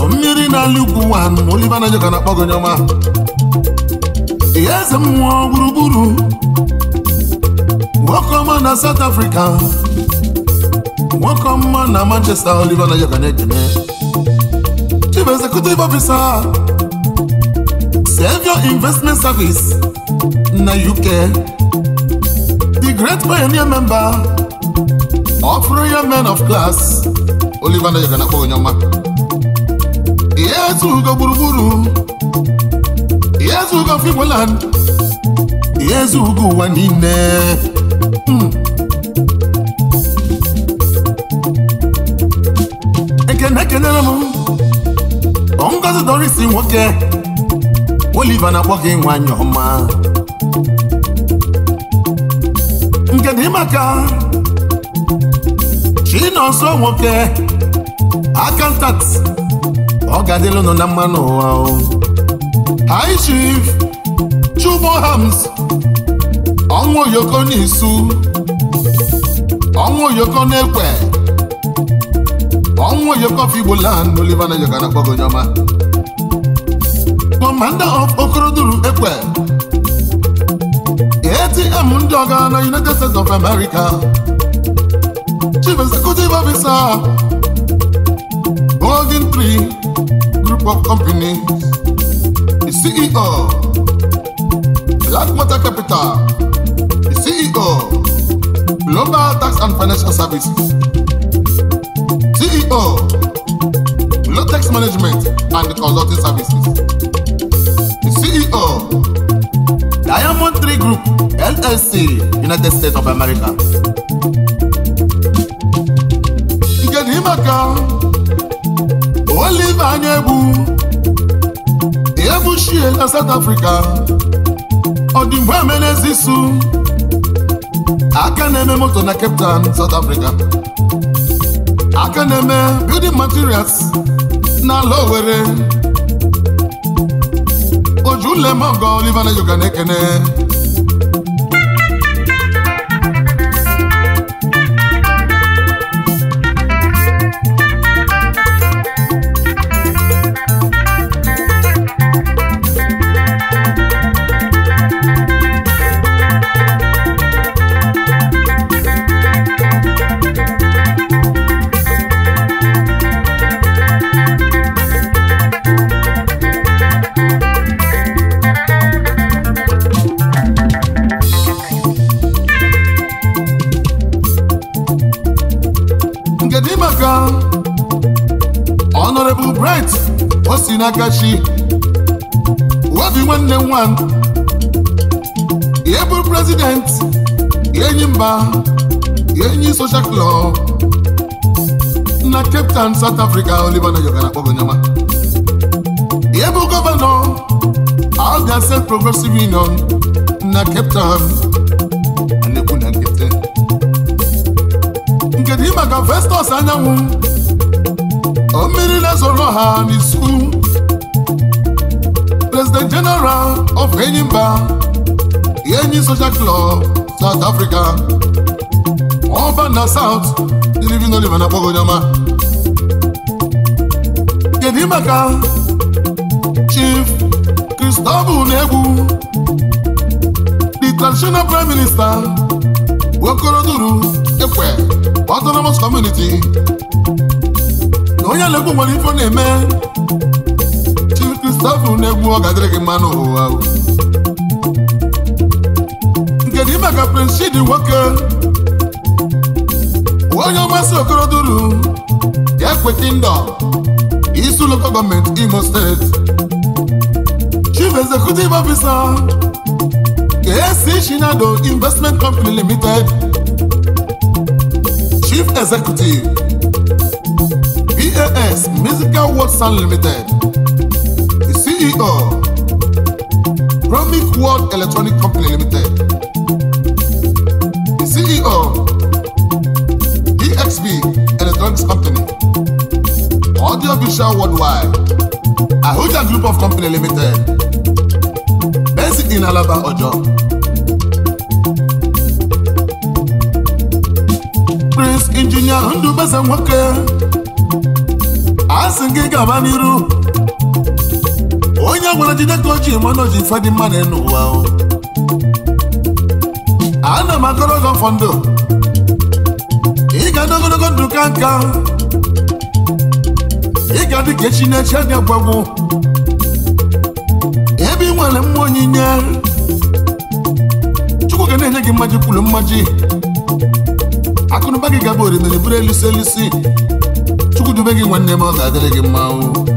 mmiri na-alị ugwu nwa oliva na joka na-akpọ gonyoma eze mmụọ gburugburu nwoke ọma na South Africa nwoke ọma na Manchester Oliver Nayoka na-ekene Chief Executive ofisa. Savior Investment Service na UK the great pioneer member of Royal Men of Class Oliver Nayoka na-akpọ onye ọma ihe ezugo gburugburu ihe ezugo Finland ihe ezugo ụwa niile hmm. Doris nwoke oliva na-akpọ gị nwanyị ọma nke dị maka Chinonso nwoke akantat ọ ga-adịla na mmanụ ụwa Hi chief Chubo Hams ọnwa oyoko n'isu ọnwa oyoko n'ekwe ọnwa oyoko figbolan Oliver na yoga na-akpọ gị commander of Okoroduru Ekwe ATM ndị ọga na United States of America Chief Executive Officer Golden Tree Group of Companies The CEO Black matter Capital The CEO Global Tax and Financial Services CEO Low Tax Management and Consulting Services Golden City, United States of America. nke dị maka Oliver anya egbu ebuchie na South Africa ọdịmgbe emenezisu aka na-eme moto na Cape Town, South Africa aka na-eme building materials na ala Owerri olive Oliver Nayoka na-ekene akachi obi nwanne nwan ihe bụ prezident enyi mba enyi social club na Cape Town South Africa Oliver Nayoka na-akpọgo nyama ihe bụ gọvanọ Abia Self Progressive Union na Cape Town na-ekwu na Nke Town maka Festus anyanwụ o mmiri na-ezoro ha n'isu president general of Enyimba Enyi Social Club South Africa ọba na South Living Oliver na Kpogonyoma kedu maka Chief Christopher Unegwu the traditional prime minister Okoroduru Ekwe Autonomous Community na onye Alegbu nwere ife ọ na-eme stafụ na-egbu ọ ga-adịrị gị Nke n'ụwa nkedu maka Prince dị nwoke onye ọmasị okoroduru ya kweta ndọ isi ụlọkọ gọọmenti Imo steeti chief executive officer KC Shinado investment company limited chief executive BAS musical works limited CEO Promic World Electronic Company Limited CEO EXB Electronics Company Audio Visual Worldwide Ahuja Group of Company Limited Basic in Alaba Ojo Prince Engineer Ndubasa Nwoke a sị gaba n'iru onye nwere jide ka o ji mana oji ji ife dị mma na n'ụwa ana m agọrọ gị ọfọ ndụ ị ga ndụ ka nka ịga ga ka echi na eche adị agwagwụ ebe ị nwere mma onyinye chukwu ga na-enye gị mmaji kwuru mmaji akụnụba gị gaba orimiri bụrụ elusi elusi chukwu dube gị nwanne m ọ ga-adịrị gị mmanwụ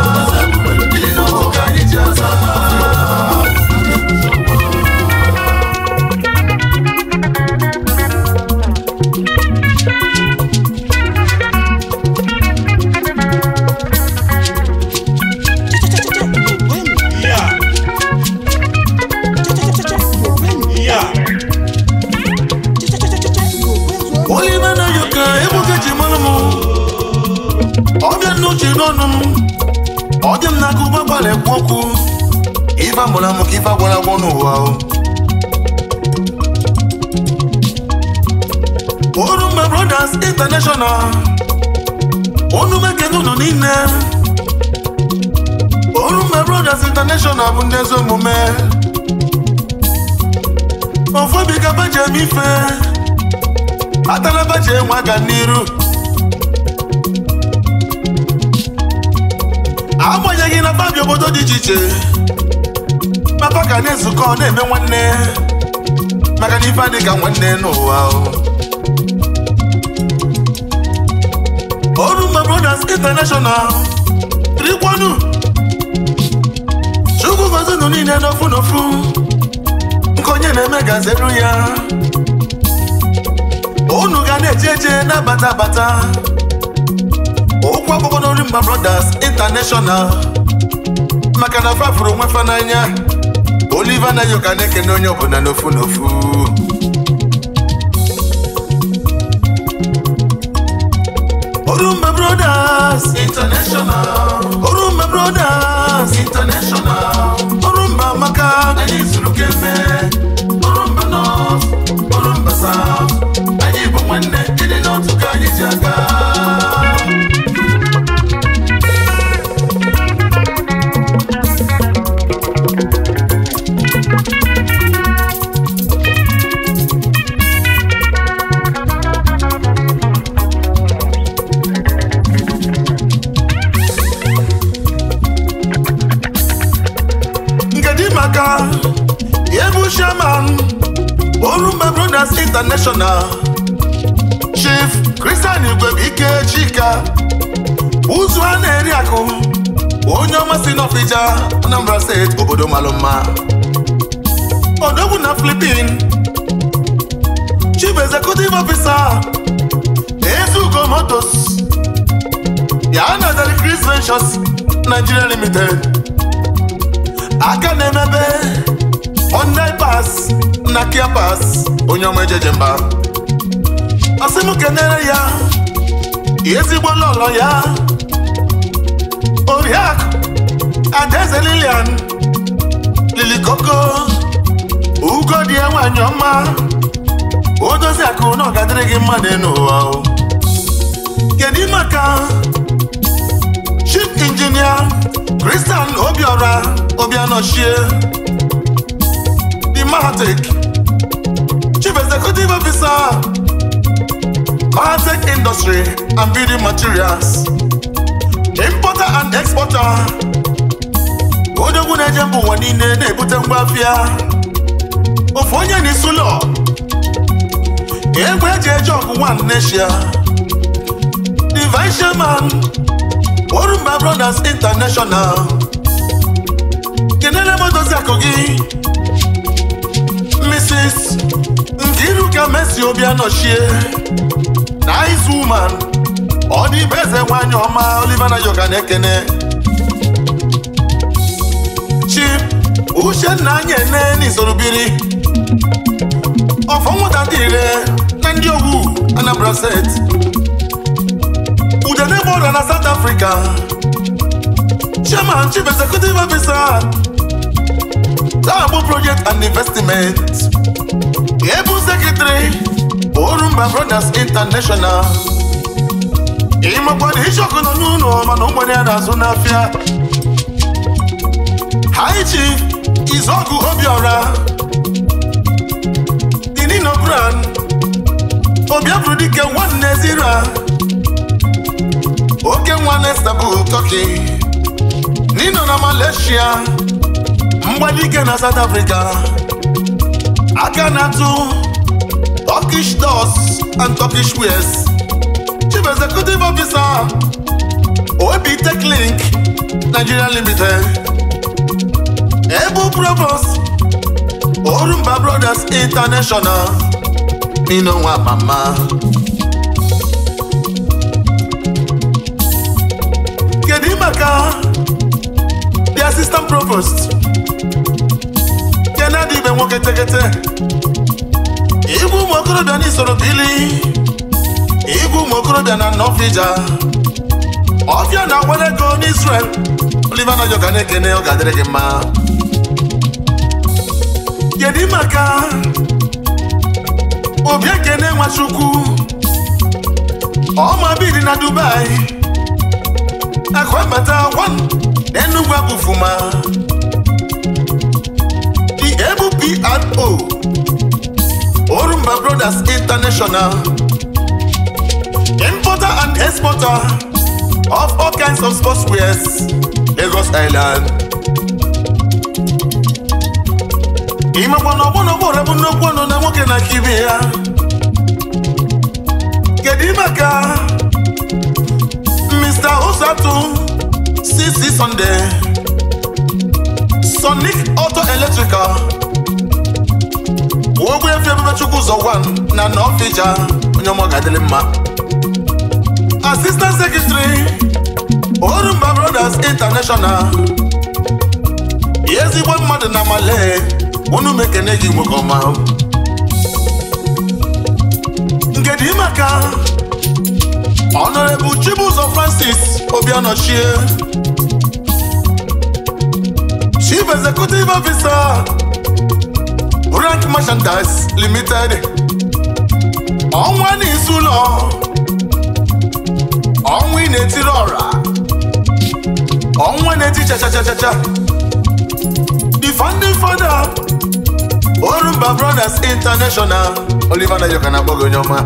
ọkpọkwu ife amụrụ amụ ka ife agwara agwọ n'ụwa Brothers International unu mekene unu niile Orumba Brothers International bụ ndị ezi omume ofobi ka ife atala baji enwe aga n'iru agbanyeghị na babia obodo dị iche iche papa ka na-ezukọ na-eme nwanne maka na ife adị nwanne n'ụwa Oru Mgba Brothers International rikwanu chukwu gozi nụ niile n'ofu n'ofu nke onye na-eme gazeru ya unu ga na-eje eje na-abata abata ụkwụ akwụkwọ n'Oru Mgba Brothers international maka na fafuru onwe fa Oliva anaghị ụka na-ekene onye ọbụla n'ofu n'ofu Orumba Brothers International Orumba Brothers International Orumba maka anyị zuru kemgbe Orumba North Orumba South anyị bụ nwanne ịdị n'otu ka anyị ji aga International Chief Christian Igwe Ike Chika ụzụ a na-eri akụ onye ọma si n'Ọfịja Anambra steeti obodo malụ mma odogwu na Philippine Chief Executive Officer Ezugo Motors ya na-azari Chris Ventures Nigeria Limited aka na-emebe online pas na kia pas onye ọma ejeje mba asị m kenere ya ezigbo oh, lọlọ ya oriakụ ah, adaeze lilian lilikoko ugodi oh, ah, oh. ya nwanyị ọma o dozi akụ na ọ gị mma n'ụwa kedu maka chief injinia Kristian Obiora Obianochie Mahatek, Chief Executive Officer, Mahatek Industry and Building Materials, Importer and Exporter, odogwu na-eje mba ụwa niile na-ebute ngwa afịa ofu onye n'isi ụlọ egwu eji eje ọgụ nwan neshia Divine Chairman Orumba Brothers International kenele m dozi akụ gị East Nkiruka Messi Obianochie Nice woman ọ dị ibe eze nwanyị ọma Oliver Nayoka na-ekene Uche nna anyị ene biri. ọfọ nwụta dị ire na ndị owu Anambra State Udene bọda na South Africa Chairman Chief Executive Officer taa bụ Project and Investment ebu mba orumba brothers international ịmakwana ichọkụ nọ n'ụlọ mana ụgbọnye na-azụ n'afịa high chief izọgụ obiọra dinino grand nwanne zira oke nwa nestabụ turkey nino na malaysia mgbalike na south africa aka na-atụ Turkish doors and Turkish wares Chief Executive Officer OEB Tech Link Nigeria Limited Ebu Provost Orumba Brothers International Minonwa Mama Kedimaka The Assistant Provost na-adị ibe nwoke tekete igwe ụmụ okorobịa na isoro bili igwe ụmụ okorobịa na nọfija ọfịa na-agbara ego n'Israel Oliver Nayoka na-ekene ọ ga-adịrị gị mma kedu maka obi ekene nwachukwu ọma biri na Dubai akụ abata gwa na Enugu abụfuma ENO Orumba Brothers International Importer and exporter of all kinds of sportswear Lagos Island ịmakwa na ọgbọnọgbọrọ bụ nnukwu ọnụ na nwoke na aka ibe ya kedu maka Mr. Usatu CC Sunday Sonic Auto Electrical ogbe efe ebube chukwu ụzọ wan na na fija onye ọma ga-adịrị mma Assistant Secretary Orumba Brothers International ezigbo mmadụ na male unu mekene gị nwoke ọma nkedị maka Honorable Chibuzor Francis Obianochie Chief Executive Officer Branch Merchandise Limited ọnwa n'izu ụlọ ọnwa ị na-etiri ọra ọnwa na-eti chachachachacha the founding father Orumba Brothers International Oliver Nayoka na-akpọ gị onye ọma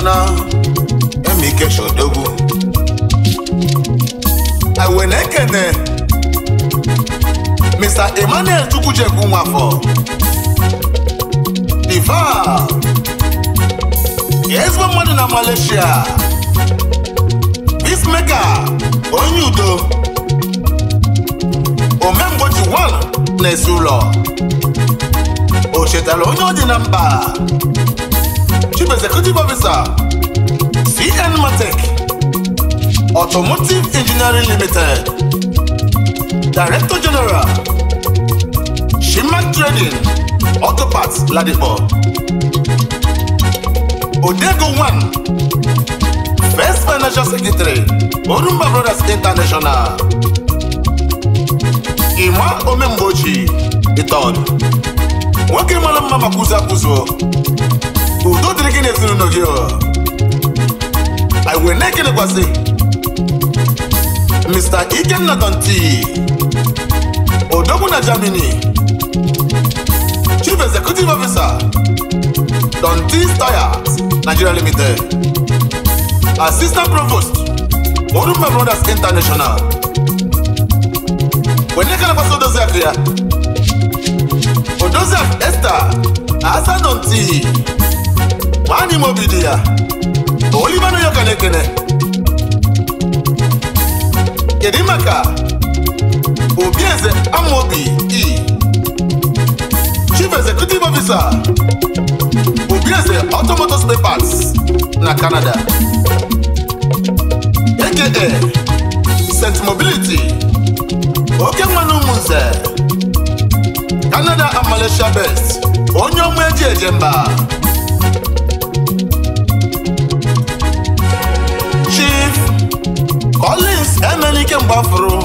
Ghana, I went Awenekene, Mr. Emmanuel Chukwucheku Nwafọ. Diva, ezigbo mmadụ na Malaysia. Peacemaker, onye udo. Omemgbochi Wal na-esi ụlọ. O chetara onye ọ dị the number. Chief Executive Officer CN Matec Automotive Engineering Limited Director General Shimak Trading Auto Parts Ladipo Odego One First Financial Secretary Orumba Brothers International Ima Omemboji Iton. nwoke mara mma maka udo dịrị gị n'ezinụlọ gị Ọ wee na-ekelekwasị Mr. Ikenna Danti odogwu na Germany Chief Executive Officer Danti Tires Nigeria Limited Assistant Provost Orumba Brothers International wee na-ekelekwasị odozi akụ ya odozi akụ Esther Asa Danti nwaanyị mobidi obi dị ya Oliver Nayoka na-ekene kedu maka obi eze amaobi e chief executive officer obi eze spare parts na Canada aka St Mobility oke nwanne ụmụnze Canada and Malaysia best onye ọma eji eje mba Collins Emelike Mgbafuru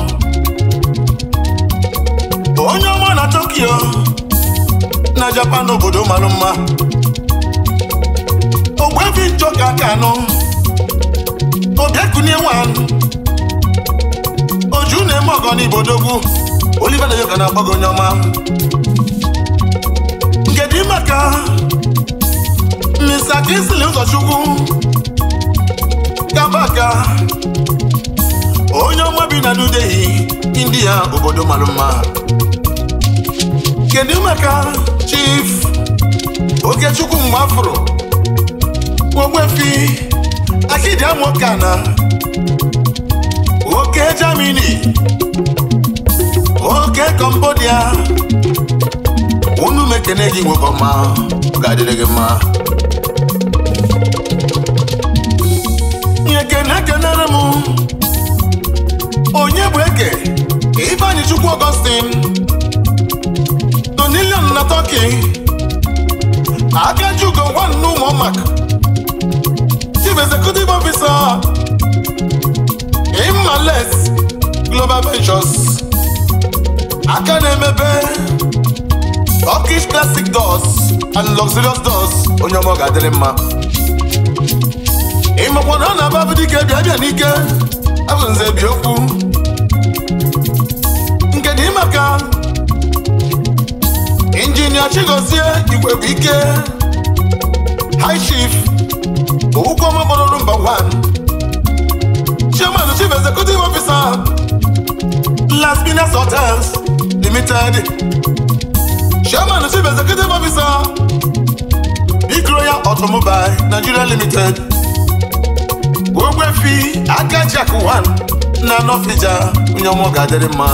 onye ọma na Tokyo na Japan obodo mara mma Ogbuefi Njoka Kanu Obiakunye nwanyi. Oju na-eme ọgọ n'Ibodogwu Oliver Nayoka na-agba onye ọma Nkedu maka Mr. Kingsley Ụzọchukwu Kabaka onye ọma bi na New India obodo mara mma kedu maka chif Okechukwu Mgbafuro Ogbuefi na oke jamini oke Cambodia unu mekene gị nwoke ọma ga-adịrị gị mma ekene kenere m onye bụ eke Ibeanyi Chukwu Augustine Donilion na Tọki Akajugo nwanne ụmụmak Chief Executive Officer Imales Global Ventures aka na-emebe Turkish Classic Doors and Luxurious Doors onye ọma ọ ga-adịrị mma ịmakwa na ọ na-aba bụ dike bịa bịa n'ike abụ nze bi okwu nke dị maka injinia chigozie igwe bụ ike high chief ụgwọma gbọrọ nọmba 1 chairman chief executive officer Las Piñas Hotels Limited chairman chief executive officer Big Royal Automobile Nigeria Limited ogbefi aka jakwan na nọfija onye ọmụ ga-adịrị mma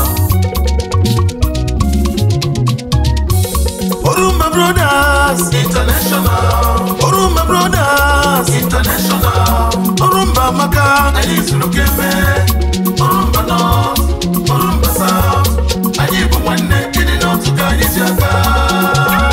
Orumba Brothers International Orumba Brothers International Orumba Amaka Anyị zuru kembe Orumba North Orumba South Anyị bụ nwanne ịdị n'otu ka anyị ji aka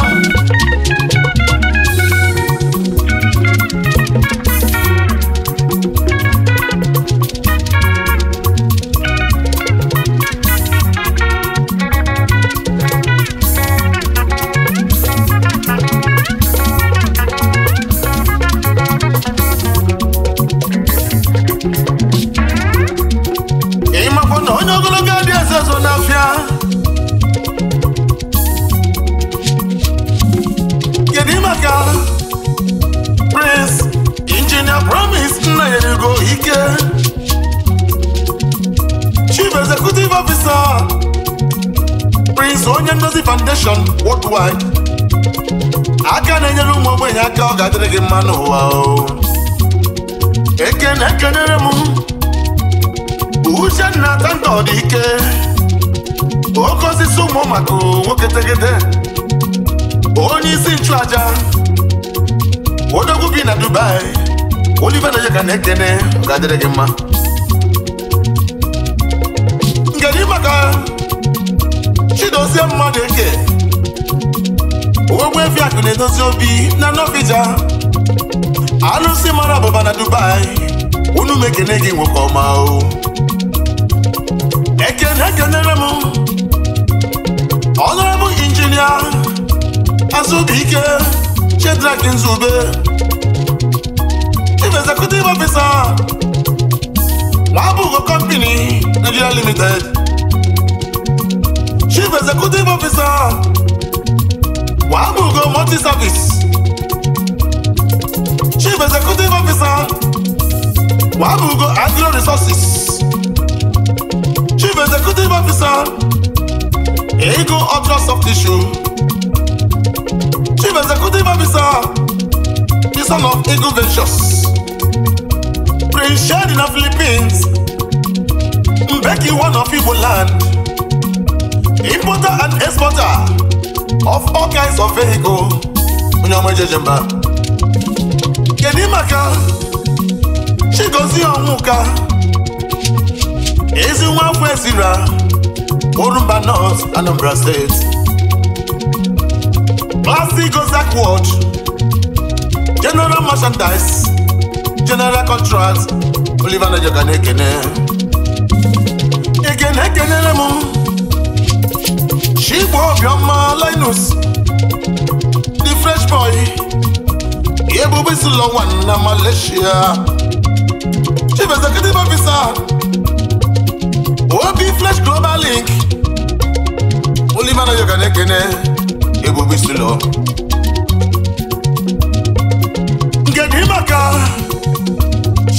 so onye ndozi foundation worldwide aka na-enyere ụmụ ogbenye aka ọ ga-adịrị gị mma n'ụwa eke na-ekenere m uche na atanta ọ dị ike oke osisi ụmụ maka nwoke tegede onye isi nchụàja odogwu bi na Dubai Oliver ka na-ekene ọ ga-adịrị gị mma Oriakụ na-edozi obi na Novija alụsị mara abụba na Dubai unu mekene gị nwoke ọma o ekene ekenere m ọnọrọbụ injinia Azubike Shedrack Nzube chief executive officer Labugo company Nigeria limited chief executive officer wabugo multi-service chief executive officer wabugo agro resources chief executive officer ego ultra soft tissue chief executive officer the son of ego ventures prince shadi na philippines mbeki one of igbo land importer and exporter of all kinds of vehicle onye ọma ejeje mba kedu maka Chigozie Onwuka ezi nwa afọ ezira Orumba North Anambra State Classic Gozak Ward General Merchandise General Contract Oliver Najoka na-ekene ekene ekenere m Chigbo Obioma Linus the Fresh Boy Ebube Isilọwa na Malaysia Chief Executive Officer Obi Flash Global Link Olimana Yoga Nekene Ebube Isilọ nke dị maka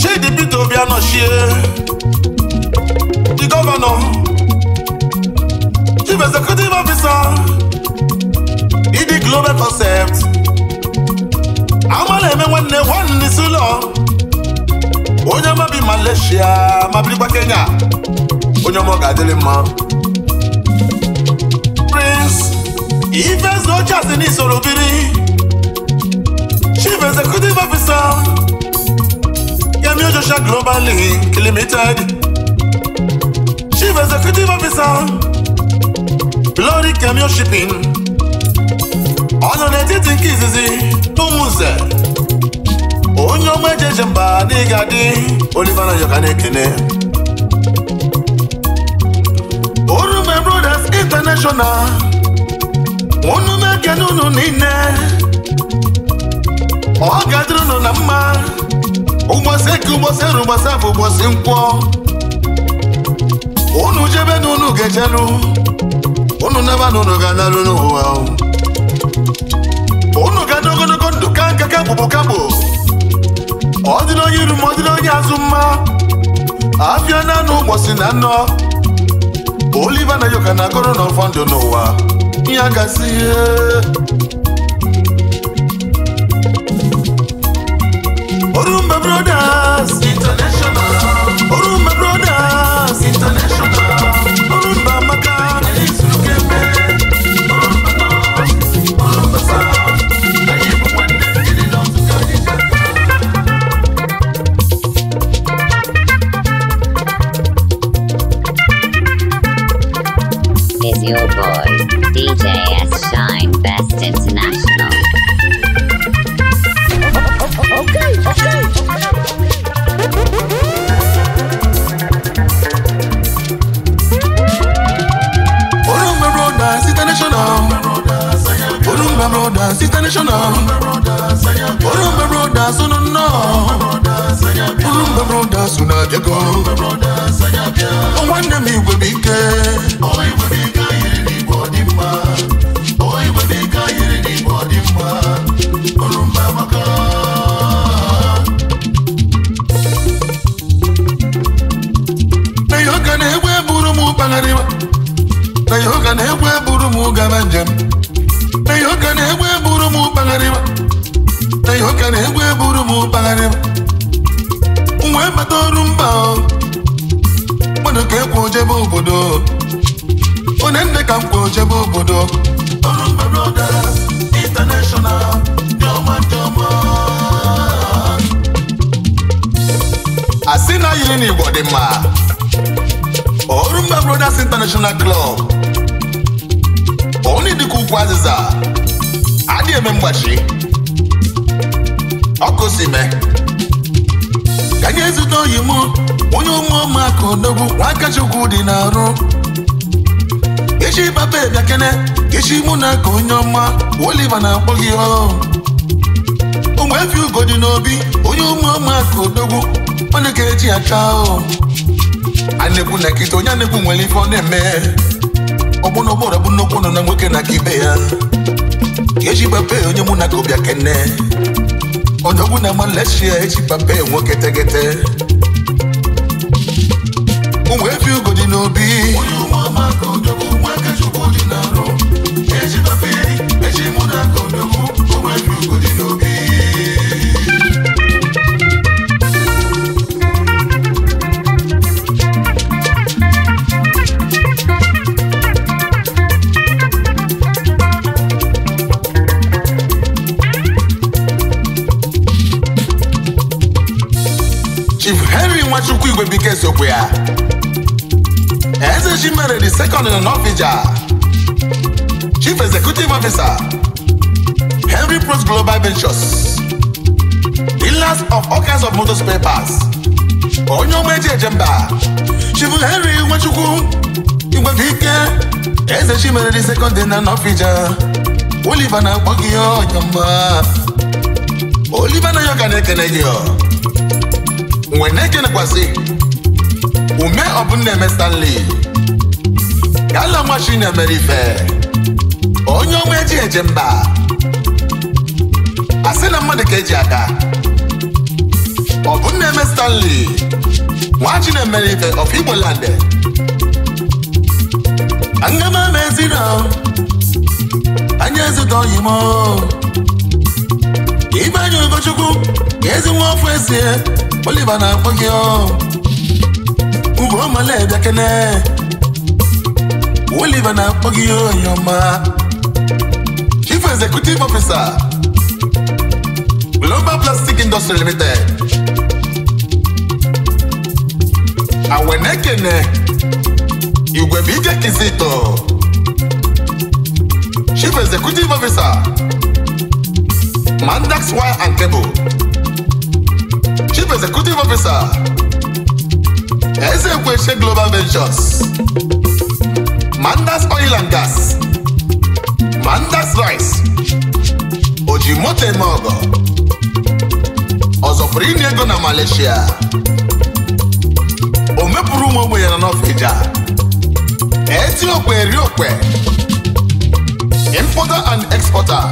Shedi Peter Obi anọchie the Governor chief executive officer ịdị global concept ama eme nwanne nwanne isi ụlọ onye mabi Malaysia ma birikwa Kenya onye ọma ga-adịrị mma Prince Ifezu Ochiasi n'isoro biri chief executive officer Yemi Ojosha Global Limited chief executive officer Glory Camion Shipping ọ nọ n'etiti nke izizi ụmụnze onye ọma ejeje mba n'ịga adị Oliver Nayoka na-ekene Orume Brothers International unu na-ekene unu niile ọ ga-adịrị unu na mma ụgbọsị eke ụgbọsị eru ụgbọsị afọ ụgbọsị nkwọ unu jebe n'unu unu unu naba na unu ga-analụ n'ụwa unu ga-adị ogologo ndụ ka nka kakpụkpụ kakpụ ọ dị onye iru ma ọ dị onye azụ mma afịa na anụ ụgbọsi na nnọ Oliva na Yoka na-akọrọ ọfọ ndụ n'ụwa ya gasị ihe Orumba Brothers International Orumba Brothers International brothers international oh. Urumba brothers unu nọ Urumba brothers unu abịago nwanne m igwe bụ ike na yoga na-egwu eburu m gaba njem na yoga na-egwu m na ihe ọka na-egwu eburu m kpagharịba wee bata ọrụ mba mmadụ ka ekwe ojebe obodo onye nne ka m kwe ojebe obodo a mba brothers international na yiri n'igbo dị mma ọrụ mba brothers international club onye dịka ukwu azịza ndị eme mgbachi ọkụ si me ka anyị ezute oyi m onye ụmụọma aka odogwu nwakachukwu dị n'arụ. arụ echi baba bịa echi mụ na ka onye ọma Oliva na-akpọ gị ọhụụ ụmụ efi ugo dị n'obi onye ụmụọma aka odogwu ọ na eji acha ahụ a na nkịta onye a nwere ife ọ na-eme ọgbụna ụgbọrọ bụ nnukwu nọ na nwoke na aka ibe ya ka eji onye mụ na kobia kene onye ọgwụ na maleshia eji pape nwoke tegete o wee bi ugo dị n'obi Ezekwia. Ezejimere the second in Norvija, Chief Executive Officer, Henry Pros Global Ventures, dealers of all kinds of motors papers. parts, onye ọgba eji ejemba, Chief Henry Nwachukwu Igwebike, Ezejimere the second in Norvija, Oliver na-akpọ gị ọnyọmma, Oliver na ya ka na-ekene gị ọ, nwe na ume ọbụna eme Stanley gala nwa na Ife onye ọnwa eji eje mba asị na mmadụ ka eji aka ọbụna eme Stanley nwa na Ife of Igbo m ama mezino anya ezute ka ibe anya Ugochukwu ka ezi nwa ọfụ esie oliva na-akpọ gị ugomalebịakene Oliver na-akpọ gị onye ọma Chief Executive Officer Global Plastic Industry Limited Awenekene Igwebike Kizito Chief Executive Officer Mandax Wire and Cable Chief Executive Officer Ezekweshe Global Ventures Mandas Oil and Gas Mandas Rice Ojimote Mogo ọzọpụrụ inye ego na Malaysia o mepụrụ ụmụ ogbenye nọ n'Ofija Etiokwe Eriokwe Importer and exporter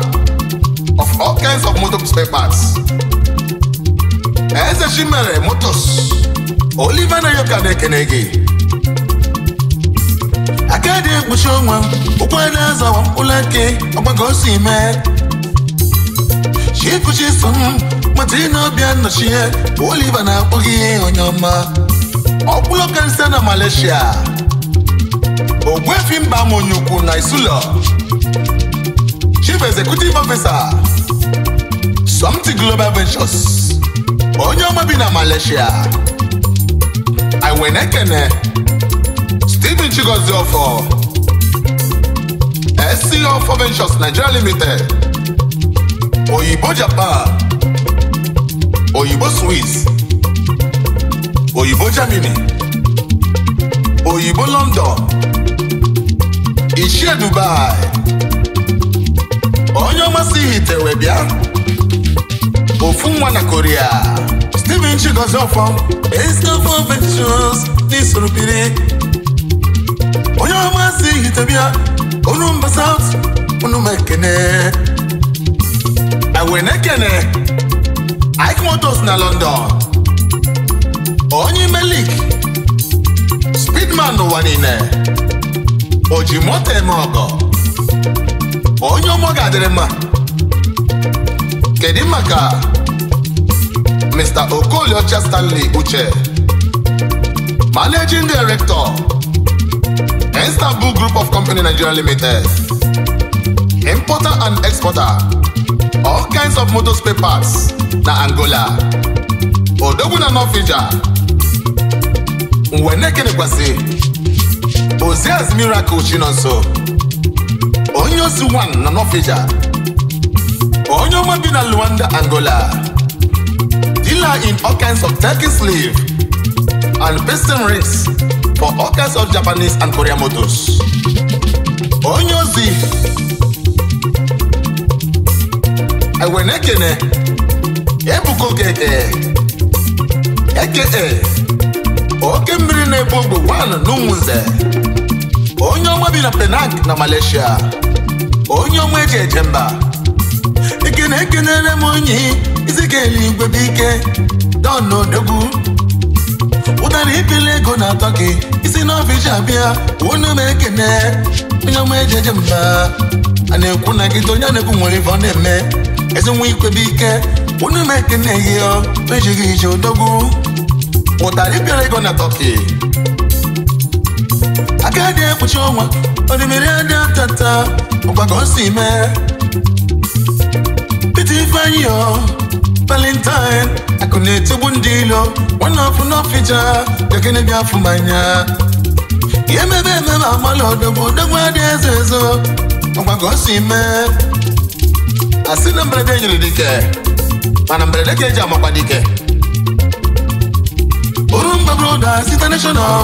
of all kinds of motor spare parts Eze Chimere Motors na yoka na-ekene gị aka dị ekpuchi onwe ụkwụ na-azawa ụlọ eke ọgbago osi mee chikuchi so m mata ị na-abịa nnọchie Oliver na-akpọ ihe onye ọma ọkpụlọ kansa na Malaysia ogwefi mba monyukwu na isulo chief executive officer Somti Global Ventures onye ọma bi na Malaysia Wenekene, Stephen Chigozie Ofor, SC Ofor Ventures Nigeria Limited, Oyibo Japan, Oyibo Swiss, Oyibo Germany, Oyibo London, Ichie Dubai, onye ọmasị ihitewe bịa, ofu nwa na Korea. Chichi Gozofo Estefo n'isoro n'Isorobiri onye ọma si Hitebia unu mba South unu ma ekene ewe na-ekene Ike na London onye melik Speedman n'ụwa niile oji moto eme ọgọ onye ọmọ ga-adịrị mma kedu maka Mr. Okoliocha Stanley Uche, Managing Director, Istanbul Group of Company Nigeria Limited, Importer and Exporter, all kinds of motor spare parts na Angola, Odogwu na North Asia, Nwenekenekwasị, Ozias Miracle Chinonso, onye osi one na North Asia, onye ọma bi na Luanda, Angola. dealer in all kinds of Turkish slave and piston rings for all kinds of Japanese and Korean motors. Onye ozi Ewenekene Ebuka Okeke eke oke mmiri na-ebu ogbe wan n'Umunze onye ọma bi na Penang na Malaysia onye ọma eji eje mba ekene ekenere m onye isi ka eluigwe bụ ike don odogwu ụtara ibili ego na-atọ gị isi n'ọfịs abịa unu m ekene onye ọma ejeje mba a na-ekwu na gị onye na-ekwu nwere ife ọ na-eme ezi ikwe bụ ike unu m ekene ihe ejighị ije odogwu ụtara ibili ego na tọki aka dị ekpuchi ọnwa odimiri adị atata ọgbago si mee pete ifeanyị valentine akụ na-etigbu ndị ilo nwanne ọfụ n'ọfịja gagene bịa afụ manya ihe mebe ememe amala odogwu odogwu adị eze ezo ọgwa ka o si mee asị na mberede nyere dike mana mberede ka eji amakwa dike bụrụ mgbabroda site national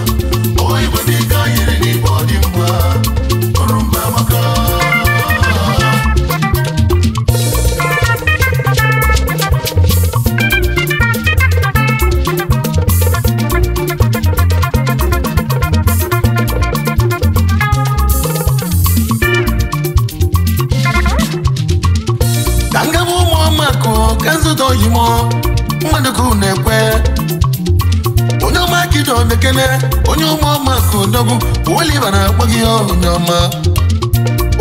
ụmụọma ka odogwu Oliva e na-akpọ gị onye ọma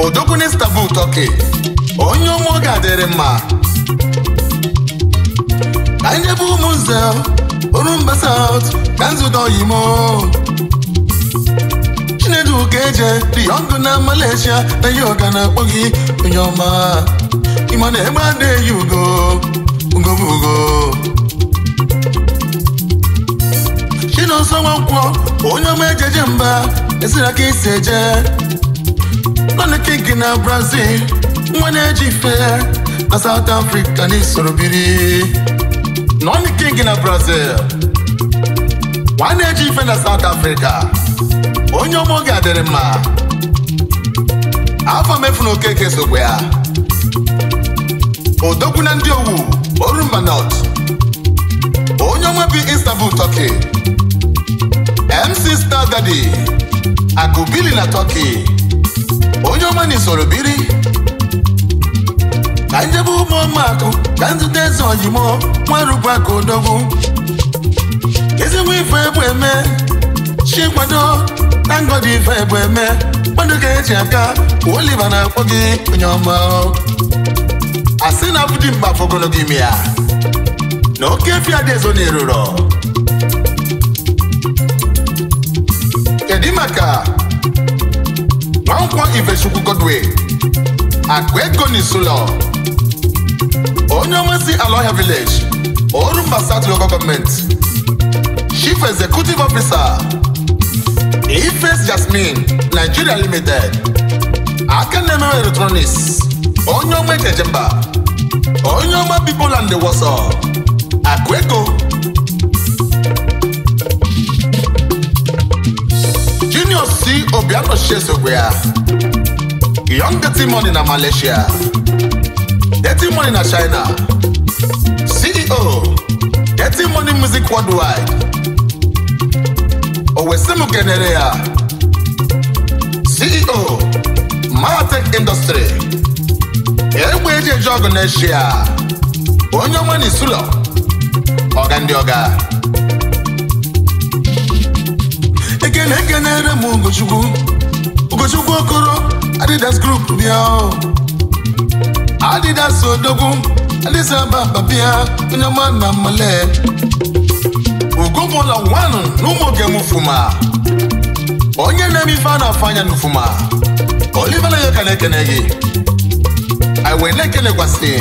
odogwu n'Istanbul tọki onye ụmụ ga adịrị mma ka ndị bụ ụmụnze nze Orumba South ka nzụdo oyimo chinedu ka eje diyongụ na Malesia na yoga na-akpọ gị onye ọma ịma na egbe adịghị ugo ugo bụ ugo Chinonso onye ọma ejeje mba esiri ka isi eje nọn kinki na brazil nwa na-eji ife na south africa na isoro biri nọn kinki na brazil nwa na-eji ife na south africa onye ọma oge adịrị mma afọ mefu na okeke sokwa ya odogwu na ndị owu orumba north onye ọma bi istanbul turkey MC Star Daddy akụbili na Turkey onye ọma na biri ka njebe akụ ka nzute eze ojimo nwarubụaka odogwu ezigbo ife ebu eme chi nkwado na ngọdị ife ebu eme mmadụ ka eji aka Oliva na-akpọ gị onye ọma asị na abụdị mgbe fọgolo gị ime ya na oke fia dị ezo na eruro edimaka nwankwo ifechukwu godwin akụ ego n'isulo onye omesi aloha village orumba south local government chief executive officer ifes jasmine nigeria limited aka na-emewe electronics onye ọma ejejemba onye ọma bipoland wọsọ akụ ego si Obianoshie sokwe a, Young Dirty Money na Malaysia Dirty Money na China CEO Dirty Money Music Worldwide owesi kenere ya CEO Matek Industry egbe eji eji ọgụ na-echi onye nwe n'isulo ọga ndị ọga na-ege na-ere m Ugochukwu Ugochukwu Okoro Adidas Group bịa Adidas Odogwu adịsa Ababa bịa onye ọma na mmale ugomụla nwanụ na ụmụ oge m fuma onye na-eme ife a na-afụ anya n'ufuma Oliver Nayoka na-ekene gị anyị wee na-ekelekwasị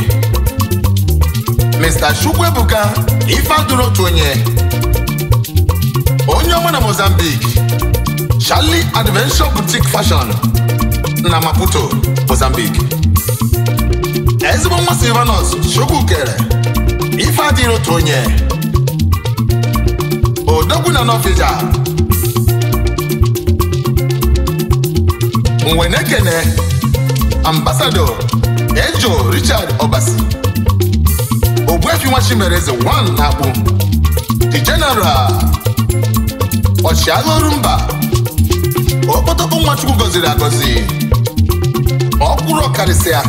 Mr. Chukwuebuka ife adụrụ otu onye onye ọma na Mozambique Charlie Adventure Boutique Fashion na Maputo, Mozambique. ezigbo nwa Silvanus kere ife adịghị otu onye odogwu na Nofija Nwenekene ambasado Ejo Richard Obasi Ogbuefi nwa Chimereze 1 na akpụ The General ọchịagha Orumba okpotokpo nwachukwu gọziri agọzi ọkwụrụ ọkarịsịa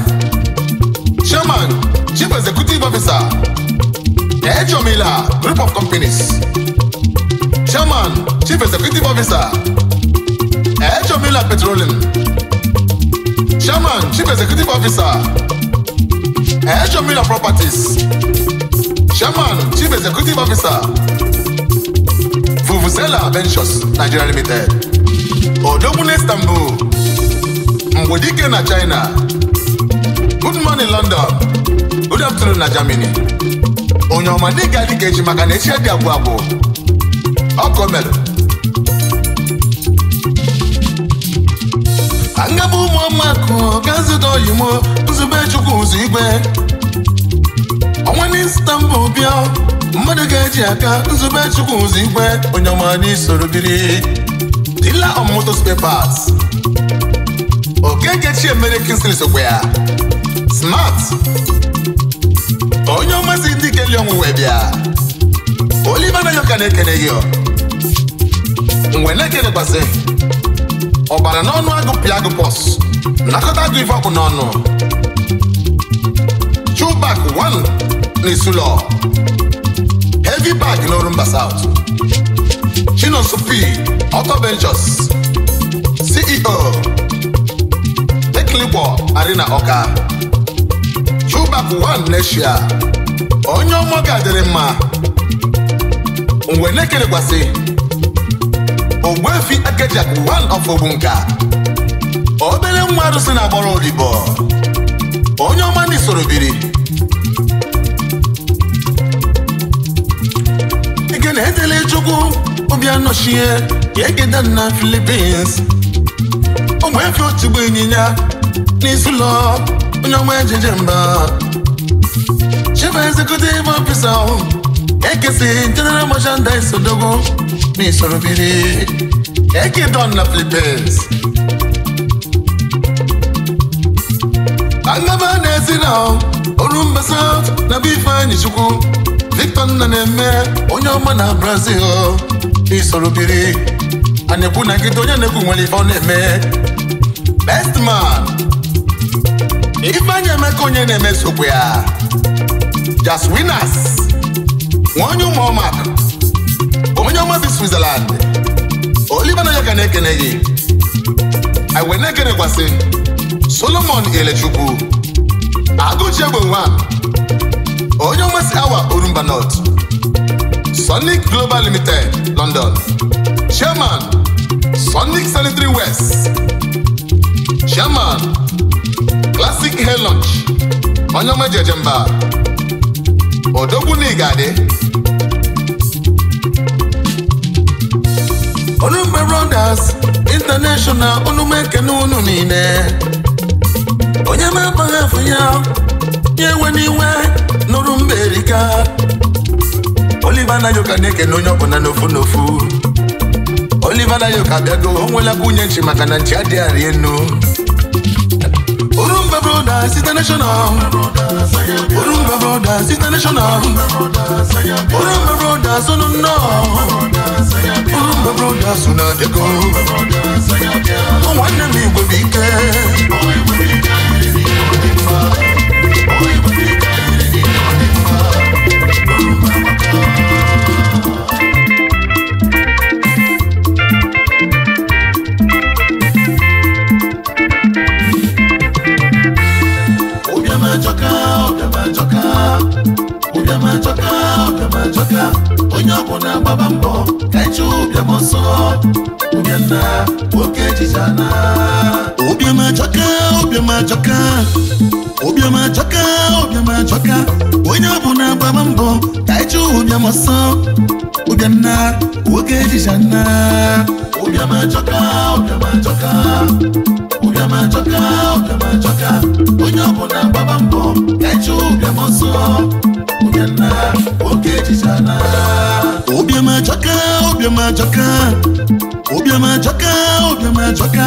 chairman chief executive officer ejomila group of companies chairman chief executive officer ejomila petroleum chairman chief executive officer ejomila properties chairman chief executive officer vuvuzela ventures nigeria limited odogwu na Istanbul mgbe dike na China good morning London good afternoon na Germany onye ọma ga dịka echi maka na echi dị abụọ abụọ ọkọ mere angaba ụmụamakụ gazid oyimo nzube chukwu ụzọ igwe ọnwa na Istanbul bịa mmadụ ga-eji aka nzube chukwu ụzọ igwe onye ọma n'isoro biri dealer of spare parts Okeke Chiemere sokwa ya smart onye ọmasị ndị ikeli ọnwụwe bịa Oliver Nayoka na-ekene gị mgbe na-ekelekwasị ọbara n'ọnụ agụpịa agụpọs nakọta agụ ife ọkụ n'ọnụ chubak 1 na heavy bag mba South Chinonso P. Auto Ventures CEO Ekligbo Arena oka Chubac One Neshia onye ọmọ ga-adịrị mma mgbe n'ekere ekelekwasị Ogbuefi Agejak One of Ogbunka obere nwa arụsị na agbọrọ odibo onye ọma ndị biri ike na-edele chukwu ụbịa nọchie ka egeda na filipins ụmụ efe otugbo ịnyịnya n'isi ụlọ onye ọnwa ejije mba chief executive officer ahụ ekesi general merchandise odogo na isorobiri egedon na Philippines agaba na-esi na orumba south na bifeanyị chukwu Victor nna na-eme onye ọma na Brazil isoro biri a na-ekwu na nkịta onye na-ekwu nwere ife ọ na-eme best man ifeanyị emeka onye na-eme sokwe ya just winners nwaonye ụmụọmak omenye ọma bi switzerland oliver na ya ka na-ekene gị anyị na-ekenekwasị solomon elechukwu agụchi egbe nwa onye ọmasị awa olumba north Sonic Global Limited, London. Chairman, Sonic Sanitary West. Chairman, Classic Hair Lunch, Onyoma Jejemba. Odogwu N'Igade. Onumbe Rounders International Onume Kenu unu niile. Onye ma abaghị afụ ya, ya n'iwe nụrụ mba Oliver Nayoka na-ekene onye ọbụla n'ofu n'ofu Oliver Yoka, abịago o nwela nwunye nchi maka na nchi adịghị arị enu Orumba Brothers International Orumba Brothers International Orumba Brothers unu oh nnọ Orumba Brothers unu abịago nwanne m igwe bụ ike abịa onye ọbụla gbaba mbọ kacha ụbịam ọsọ ụbịana nwoke ejijana ụbịam ajọka ụbịam ajọka ụbịam ajọka ụbịam ajọka onye ọbụla gbaba mbọ kacha ụbịam ọsọ ụbịana nwoke ejijana ụbịam ajọka ụbịam ajọka ụbịam ajọka ụbịam ajọka onye ọbụla gbaba mbọ obiamajọka ajọka obiamajọka ajọka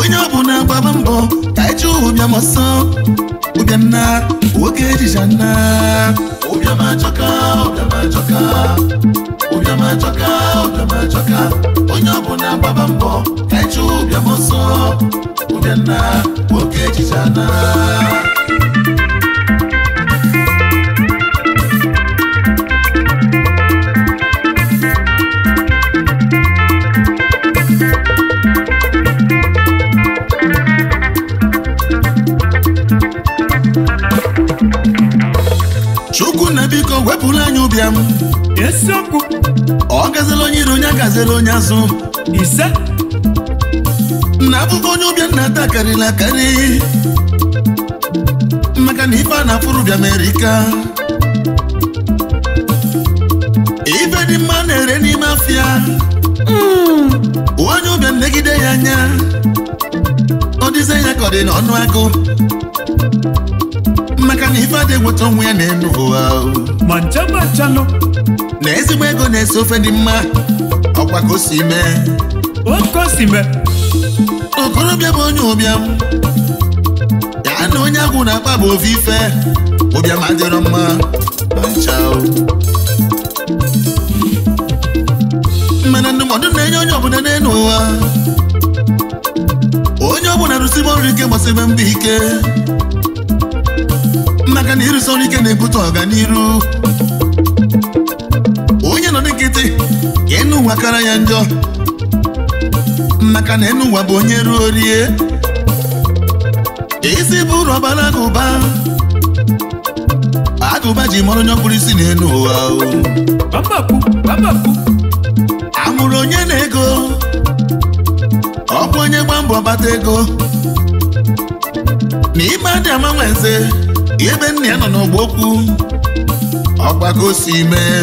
onye ọbụla mbọ ka eji ụbịam ọsọ ụbịanna nwoke onye ọbụla mbọ ka ụbịam azere onye azụ ise na abụbụ onye ụbịa na ata karịrị akarị maka na ife a na-afụrụ bịa Amerịka ife dị mma na-ere n'ime afịa onye ụbịa negide ya anya ọ dịze ya ka ọ dị n'ọnụ agụ maka na ife adị nweta onwe ya na-enu ụwa na ezigbo ego na-ese ofe dị mma ọkwa ka o si mee okorobịa bụ onye ụbịam ya na onye agwụ na-akpa bụ ofufe ụbịam adịrọ mma ma ncha mana ndụmọdụ na-enye onye ọbụla n'elu ụwa onye ọbụla rụsibe ọrụ ike gbasibe ike maka na ike na-ebute ọganiru enu ụwa kara ya njọ maka na enu ụwa bụ onye ruo rie isi bụrụ ọbara agụba agụba ji mọrọ onye ọkpụrụ isi n'enu ụwa amụrụ onye na-ego ọ onye gba mbọ bata ego na ime adị ama eze ebe nna ya nọ n'ọgba okwu ọgbagosi mee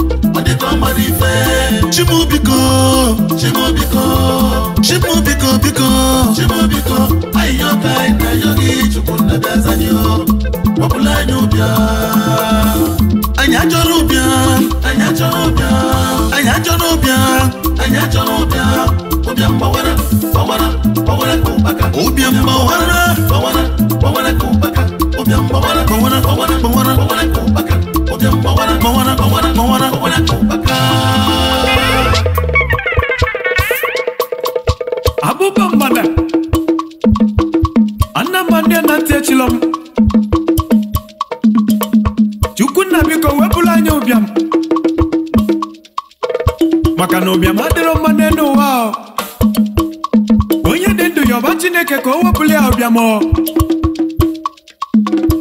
Chimu biko Chimu biko Chimu biko biko Chimu biko Ayo kai na yogi chukunna bezanyo Wapula nyubia Anya choro ubia Anya choro ubia Anya choro ubia Anya choro ubia Ubia mbawara Mbawara Mbawara kumbaka Ubia mbawara Mbawara Mbawara kumbaka Ubia mbawara Mbawara Mbawara Mbawara kumbaka Moana, Moana, Moana, Moana, Copacabana mana, ya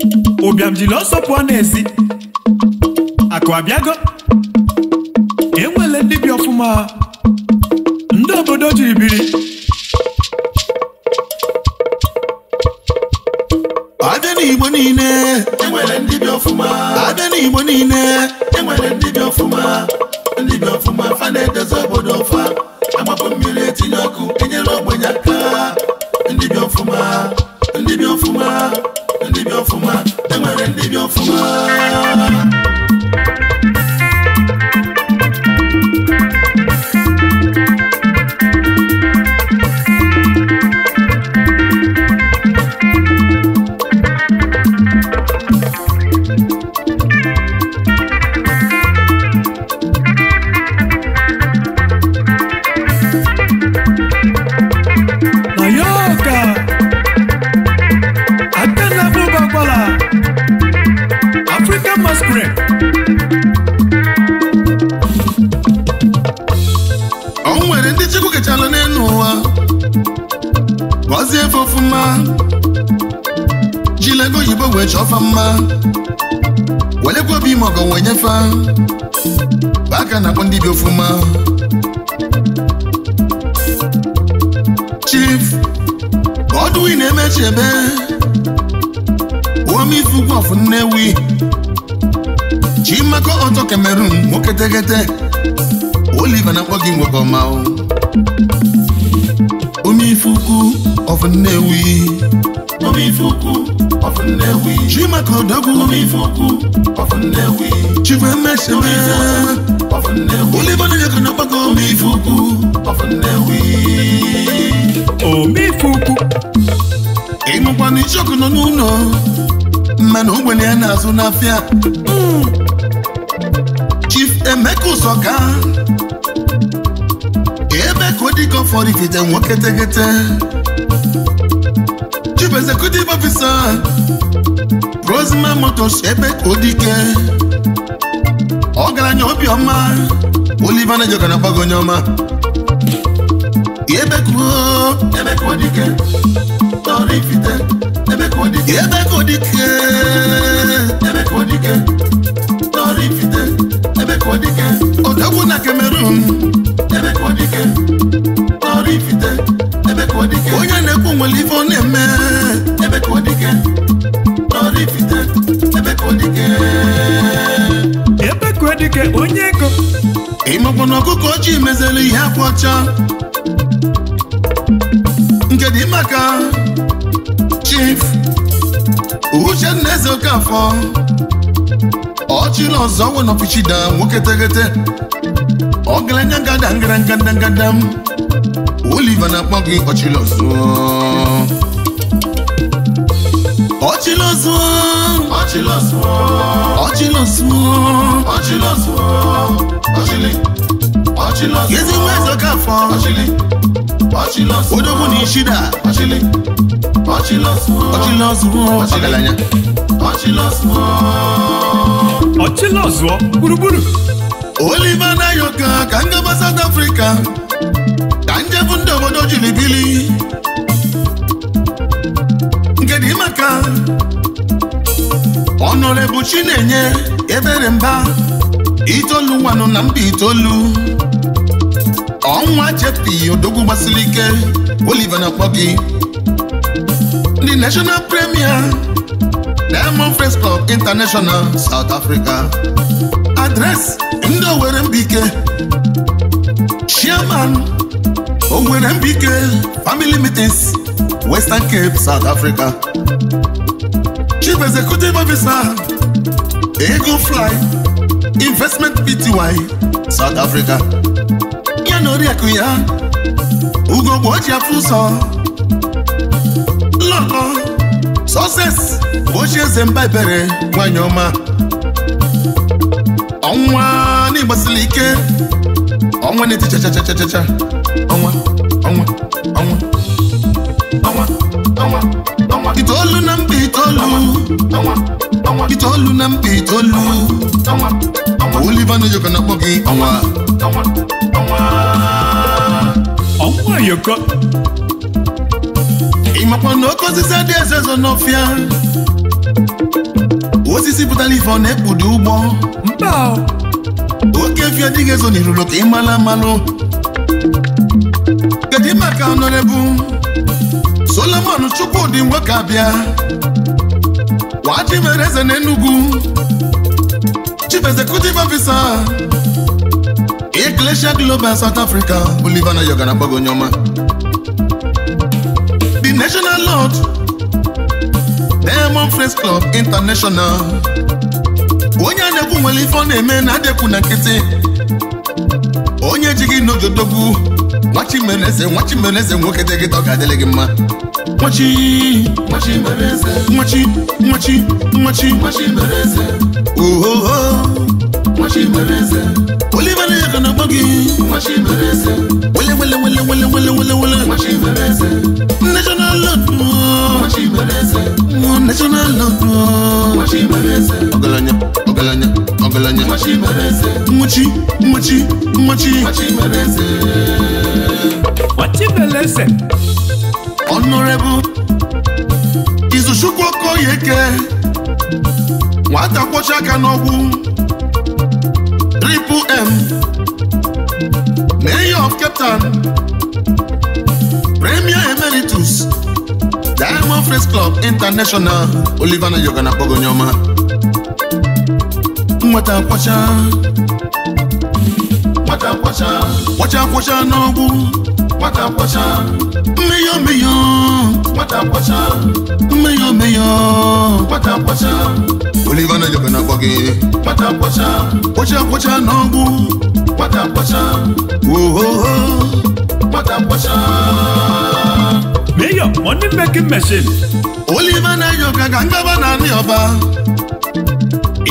chọfa mma welekwa obi ime ọgọ wee aka na-akpọ ndị bi ofuma chief ọdụwi na-emechebe omeife ugwu ọfụ nnewi chimako ọtọ kamerun nwoke tegete oliva na-akpọ gị nwoke ọma omeife ukwu ọfụ nnewi chimaka ọdọgwụ chifemeseme olibonye kana ọgbakọ omifukwu ịnụkwana ichọkụ nọ n'ụlọ mana ogbenye ya na-azụ n'afịa chief emeka ụsọka ebe ka ọ dịka ọ ikete nwoke tegete chief executive officer Rosman Motors ebe Odike ọgaranya obiọma Oliver Nayoka na agbagonye ọma ebe ka Odike tọrọ ifite ebe ka Odike ebe ka Odike tọrọ ifite ebe ka Odike odogwu na Cameroon ebe Odike tọrọ ifite onye na-ekwu nwere ife ọ na-eme ebe ka ọ dike ọrịfite ebe ka dike ebe dike onye ego ịmakwa na ọkụkọ ojii mezere ihe akwọcha. ọcha nke dị maka chief uchenna eze okafọ ọchịla ọzọ nwe n'ọfichida nwoke teghete ọgaranya ngada ngara ngada ngada m live and akpọ gị ọchịlọsụ ọchịlọsụ ọchịlọsụ ọchịlọsụ ọchịlọsụ ọchịlị ọchịlọsụ yezi nwa ẹzọ ká fọ ọchịlị ọchịlọsụ odogwu na ishida ọchịlị ọchịlọsụ ọchịlọsụ ọchịlanya ọchịlọsụ ọchịlọsụ gburugburu Oliver Nayoka ka ngaba South Africa bụ ndị obodo jiri bili nke dị maka na-enye ebere mba itoolu nwanụ na mba itoolu ọnwa jepi odogwu gbasiri ike Oliver na-akpọ ndị national premier Diamond Face Club International South Africa adres ndị owere Mbike chairman o nwere mbike family meetings Western Cape South Africa Chief Executive Officer Ego Fly Investment Pty South Africa ya na oriakụ ya ugo gbo oji afọ ụzọ lọkọ sọses ochie eze mba ebere nwanyị ọma ọnwa n'ịgbasili ike ọnwa na-eti chachachachacha ọnwa ọnwa ọnwa ọnwa ọnwa ọnwa itoolu na mba itoolu itoolu na mba itoolu ọnwa ọnwa na ọnwa ọnwa ọnwa ịmakwa na oke osisi adị eze zọ n'ọfịa osisi pụtara ife ọ na-ekpudo ụgbọ mba oke fịa adịghị ezo ka ị kedu maka ọnọrebu Solomon Chukwudi nwoke abịa wadimere eze na Enugu Chief Executive Officer Iglesia Global South Africa Oliver Nayoka na agbago The National Lord Diamond Friends Club International onye a na-ekwu nwere ife ọ na-eme na adekwu na nkịtị onye ejighị n'ojodogwu nwachimeneze nwachimeneze nwoke dị gịta ọ ga-adịlị gị mma nwachi nwachi nwachi ohoho olivana ya kana gbọ gị wele wele wele national ọgaranya ọgaranya ọgaranya nwachi nwachi nwachi Izuchukwu Okoyeke nwata kwọcha aka n'ọgwụ m mayor of Cape Town premier emeritus Diamond Face Club International Oliver na yoga na akpọgo nyoma kwacha kwacha kwacha kwacha kwacha kwacha Oliver na yoga na kwacha kwacha kwacha kwacha kwacha mayor money making machine Oliver Nayoka ka ngaba na anị ọba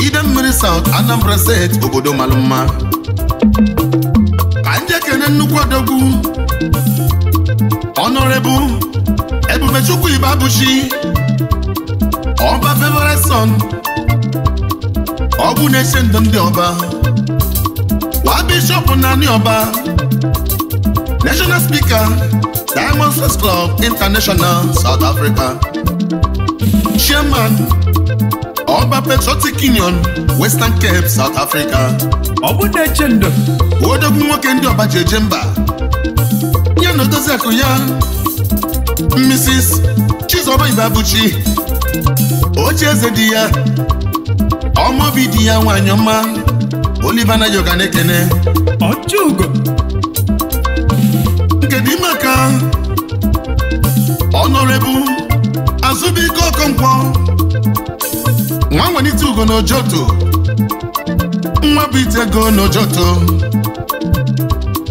ide mmiri South Anambra State obodo malụ mma ka njekene nnukwu odogwu Honorable Ebubechukwu Ibabuchi ọba favorite son ọgwụ na-eche ndụ ndị ọba wa na anị ọba national speaker Diamond Club International South Africa Chairman Ọba Patriotic Union Western Cape South Africa Ọ odogwu nwoke ndị ọba ji eje mba ya na odozi akụ ya Mrs. Chizoba Ibabuchi oche eze di ya ọmaobi di ya nwanyị ọma olivana yoga na-ekene ọchụgo Honorable Azubike Okonkwo nwa nwelite ugo n'Ojoto nwa bụ ite ego n'Ojoto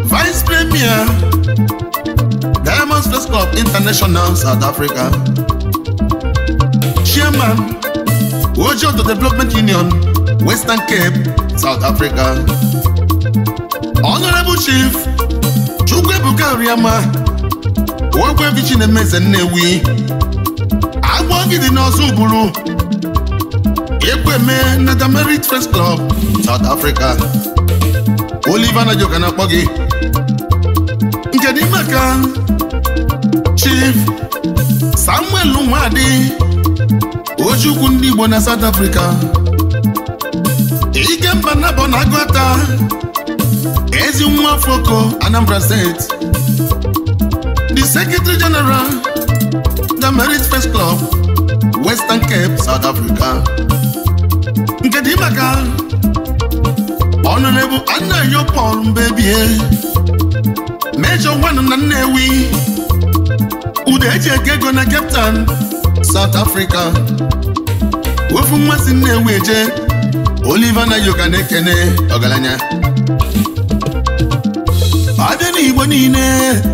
Vice Premier Diamond Sports Club International South Africa Chairman Ojoto Development Union Western Cape South Africa Honorable Chief Chukwuebuka Oriama nwankwevi chinemeze nnewi agwọ gị dị n'ọzọ ụbụrụ! ekweme nata merit first club South Africa Oliver Najoka na-akpọ gị nke dị maka Chief Samuel Nwadi Ojukwu ndị Igbo na South Africa Ikemba Nabọ na Agụata ezi nwa Foko Anambra State Secretary General, the Merit Club, Western Cape, South Africa. Nke dị maka Honorable Anayo Paul Mbebie, Major One na Nnewi, Ude eji eke ego na Cape South Africa. Wefu mmasị Nnewi eje, Oliver Nayoka na-ekene ọgaranya. abịa n'igbo niile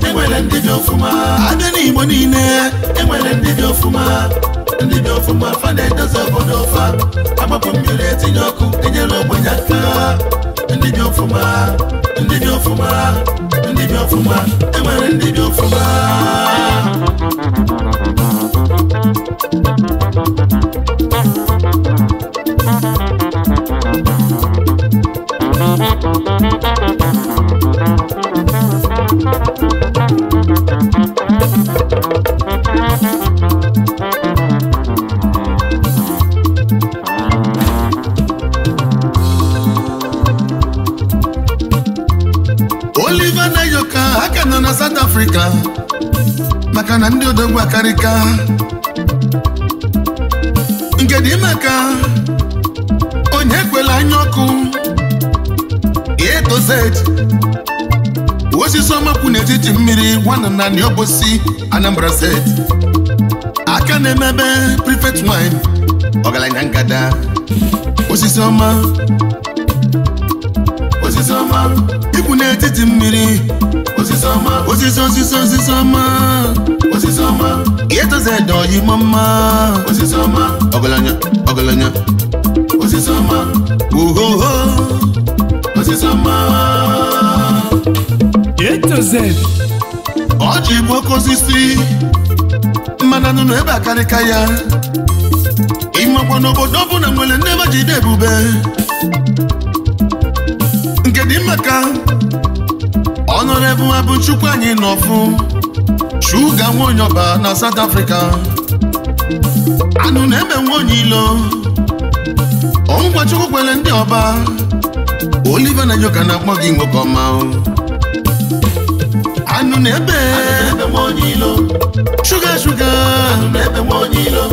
enwere ndị dị ọfụma abịa n'igbo niile enwere ndị dị ọfụma ndị dị ọfụma fa na-edozi obodo ọfa agbapụ mmiri etinye ọkụ enyere ogbenye aka ndị dị ọfụma ndị dị ọfụma ndị dị ọfụma enwere ndị dị ọfụma mmadụ gwakarịka nke dị maka onye kwela anya ọkụ etoz osisi ọmakwu n'etiti mmiri Anambra aka na-emebe prefect wine ọgaranya ngada osisi ọma osisi ọma ikwu n'etiti mmiri osisi ọma osisi osisi osisi ọma ọma. G8Z oyimo mma ọma. ọgaranya ọgaranya ohoho G8Z ọ ji bụ oke osisi mmanụ anụ ebe a akarịka ya ịmakwa n'obodo ọbụla nwere nne ebe jide ebube nke dị maka ọnọrọ ebu abụ chukwu anyị nọ n'ọfụ shuga nwonyoba na South Africa anụ na-eme nwonye ilo ọngwa chukwu kwere ndị ọba Oliver Nayoka na-akpọ gị nwoke ọma anụ na-ebe nwonye ilo shuga shuga anụ na-ebe nwonye mm. ilo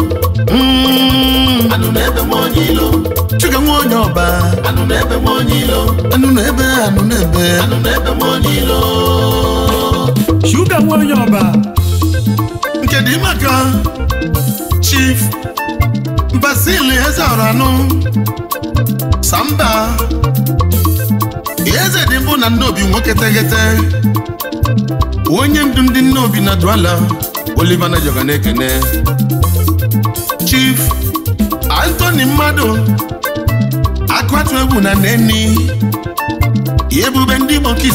anụ ebe nwonye ilo Chuka nwonye ọba anụ na-ebe nwonye ilo anụ na-ebe anụ na-ebe anụ na-ebe nwonye ilo Chuka Nwayoba nke dị maka Chief Basil Ezeoranụ Samba eze dị mbụ na Nnobi nwoke teghete onye ndu ndị Nnobi na Duala Oliver Nayoka na-ekene Chief Anthony Mmadụ akụatụ egwu na Nenni ebube ndị Igbo nke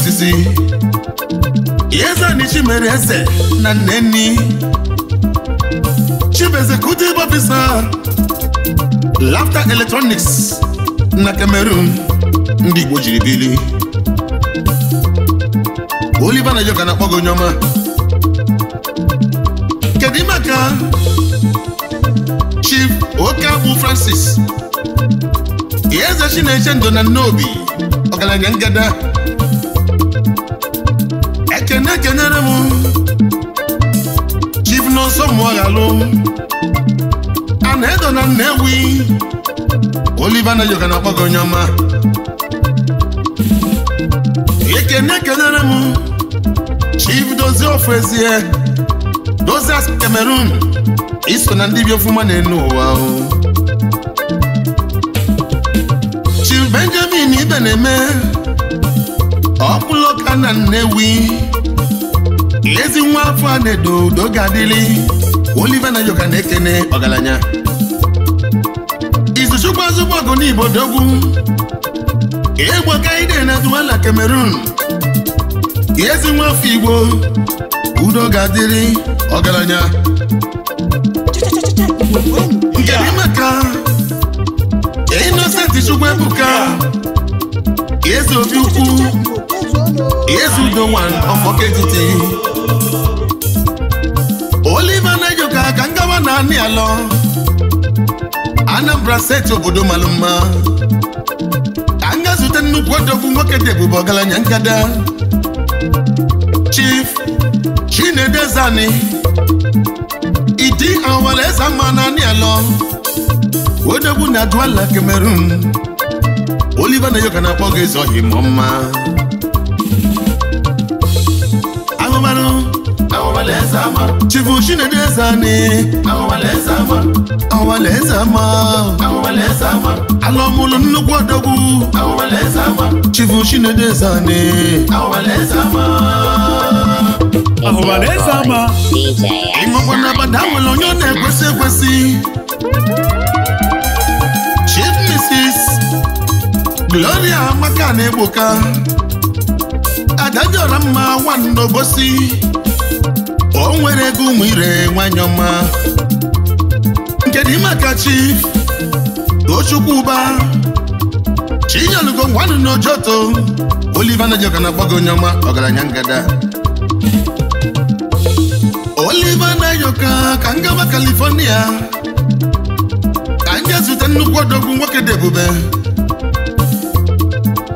Iyezanichi mere eze na Nnenni Chief Executive Officer lafta Electronics na Cameroon ndị Igbo jiri bili Oliver Nayoka na-akpọ gị ọma kedu maka Chief Okabu Francis na Chineche Ndụ na obi ọgaranya ngada kene kenere m chief n'ọsọ mụọghalụ a na-edo na Nnewi Oliver Nayoka na-akpọ gị onye ọma ekene kenere m chief dozie ofu ezie dozie as Cameroon iso na ndị bi ofuma na-enu ụwa chief Benjamin Ibe na-eme ọkpụlọka na Nnewi ezi nwa afọ a na-edo udo ga-adịli Oliver na yoga na-ekene ọgaranya izuchukwu azụgbọ ọgụ n'Igbo dogwu egbo ide na Duwala Cameroon ezi nwa afọ Igbo udo ga-adịrị ọgaranya nkeri maka Innocent Chukwu Ebuka eze obi ukwu eze udo nwa ọfọketiti Oliver Nayoka ka ngawa na alọ Anambra steeti obodo malụ mma ka nga zute nnukwu odogwu nwoke dị ebube ọgaranya nkada Chief Chinedezani Idi Awaleza mma na anị alọ odogwu na Douala Cameroon Oliver Nayoka na-akpọ gị zọhi mọ mma chifu chinedu eze anị ọwalaeze ama alụmụlụ nnukwu odogwu chifu chinedu eze anị ọwalaeze ama ịṅụkwa na bada nwere onye ọ na-ekwesị ekwesị chief mrs gloria maka na egboka adajọra mma nwanne obosi nwere ego ụmụ ire nwanyị ọma nke dị maka chi tochukwu ụba chinyelugo ngwanụ n'ojoto na Nayoka na agbago onye ọma ọgaranya ngada na yoka ka ngaba California ka m ga-ezute nnukwu odogwu nwoke dị ebube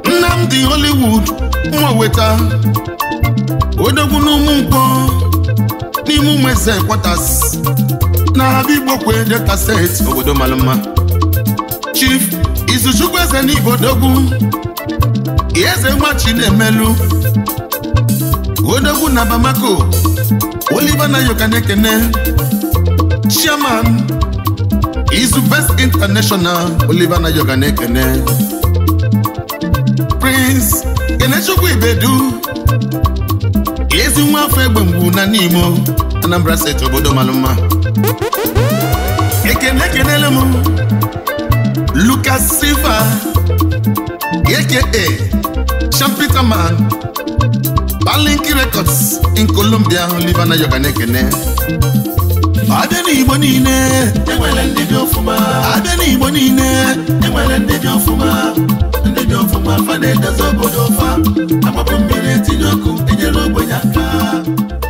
Nnamdi Hollywood nwa weta odogwu n'ụmụ nkwọ n'ime ụmụ eze kwatas na abịa igbo kwe delta steeti obodo mara mma chief izuchukwu eze n'ibodogwu eze nwa chinemelu odogwu na bamako oliver na-ekene chairman izu best international na nayoka na-ekene prince kenechukwu ibedu ezi nwa afọ egbe mgbu na n'imo Anambra steeti obodo malụ mma ekene ekenele m Lucas Silva e. aka man Balinki Records in Colombia Livana yoga na-ekene abịa n'igbo niile enwere ndị dị Adé abịa n'igbo niile enwere ndị dị Ndebi ndị dị fa na-edozi obodo ọfa agbapụ mmiri etinye ọkụ enyere ogbenye aka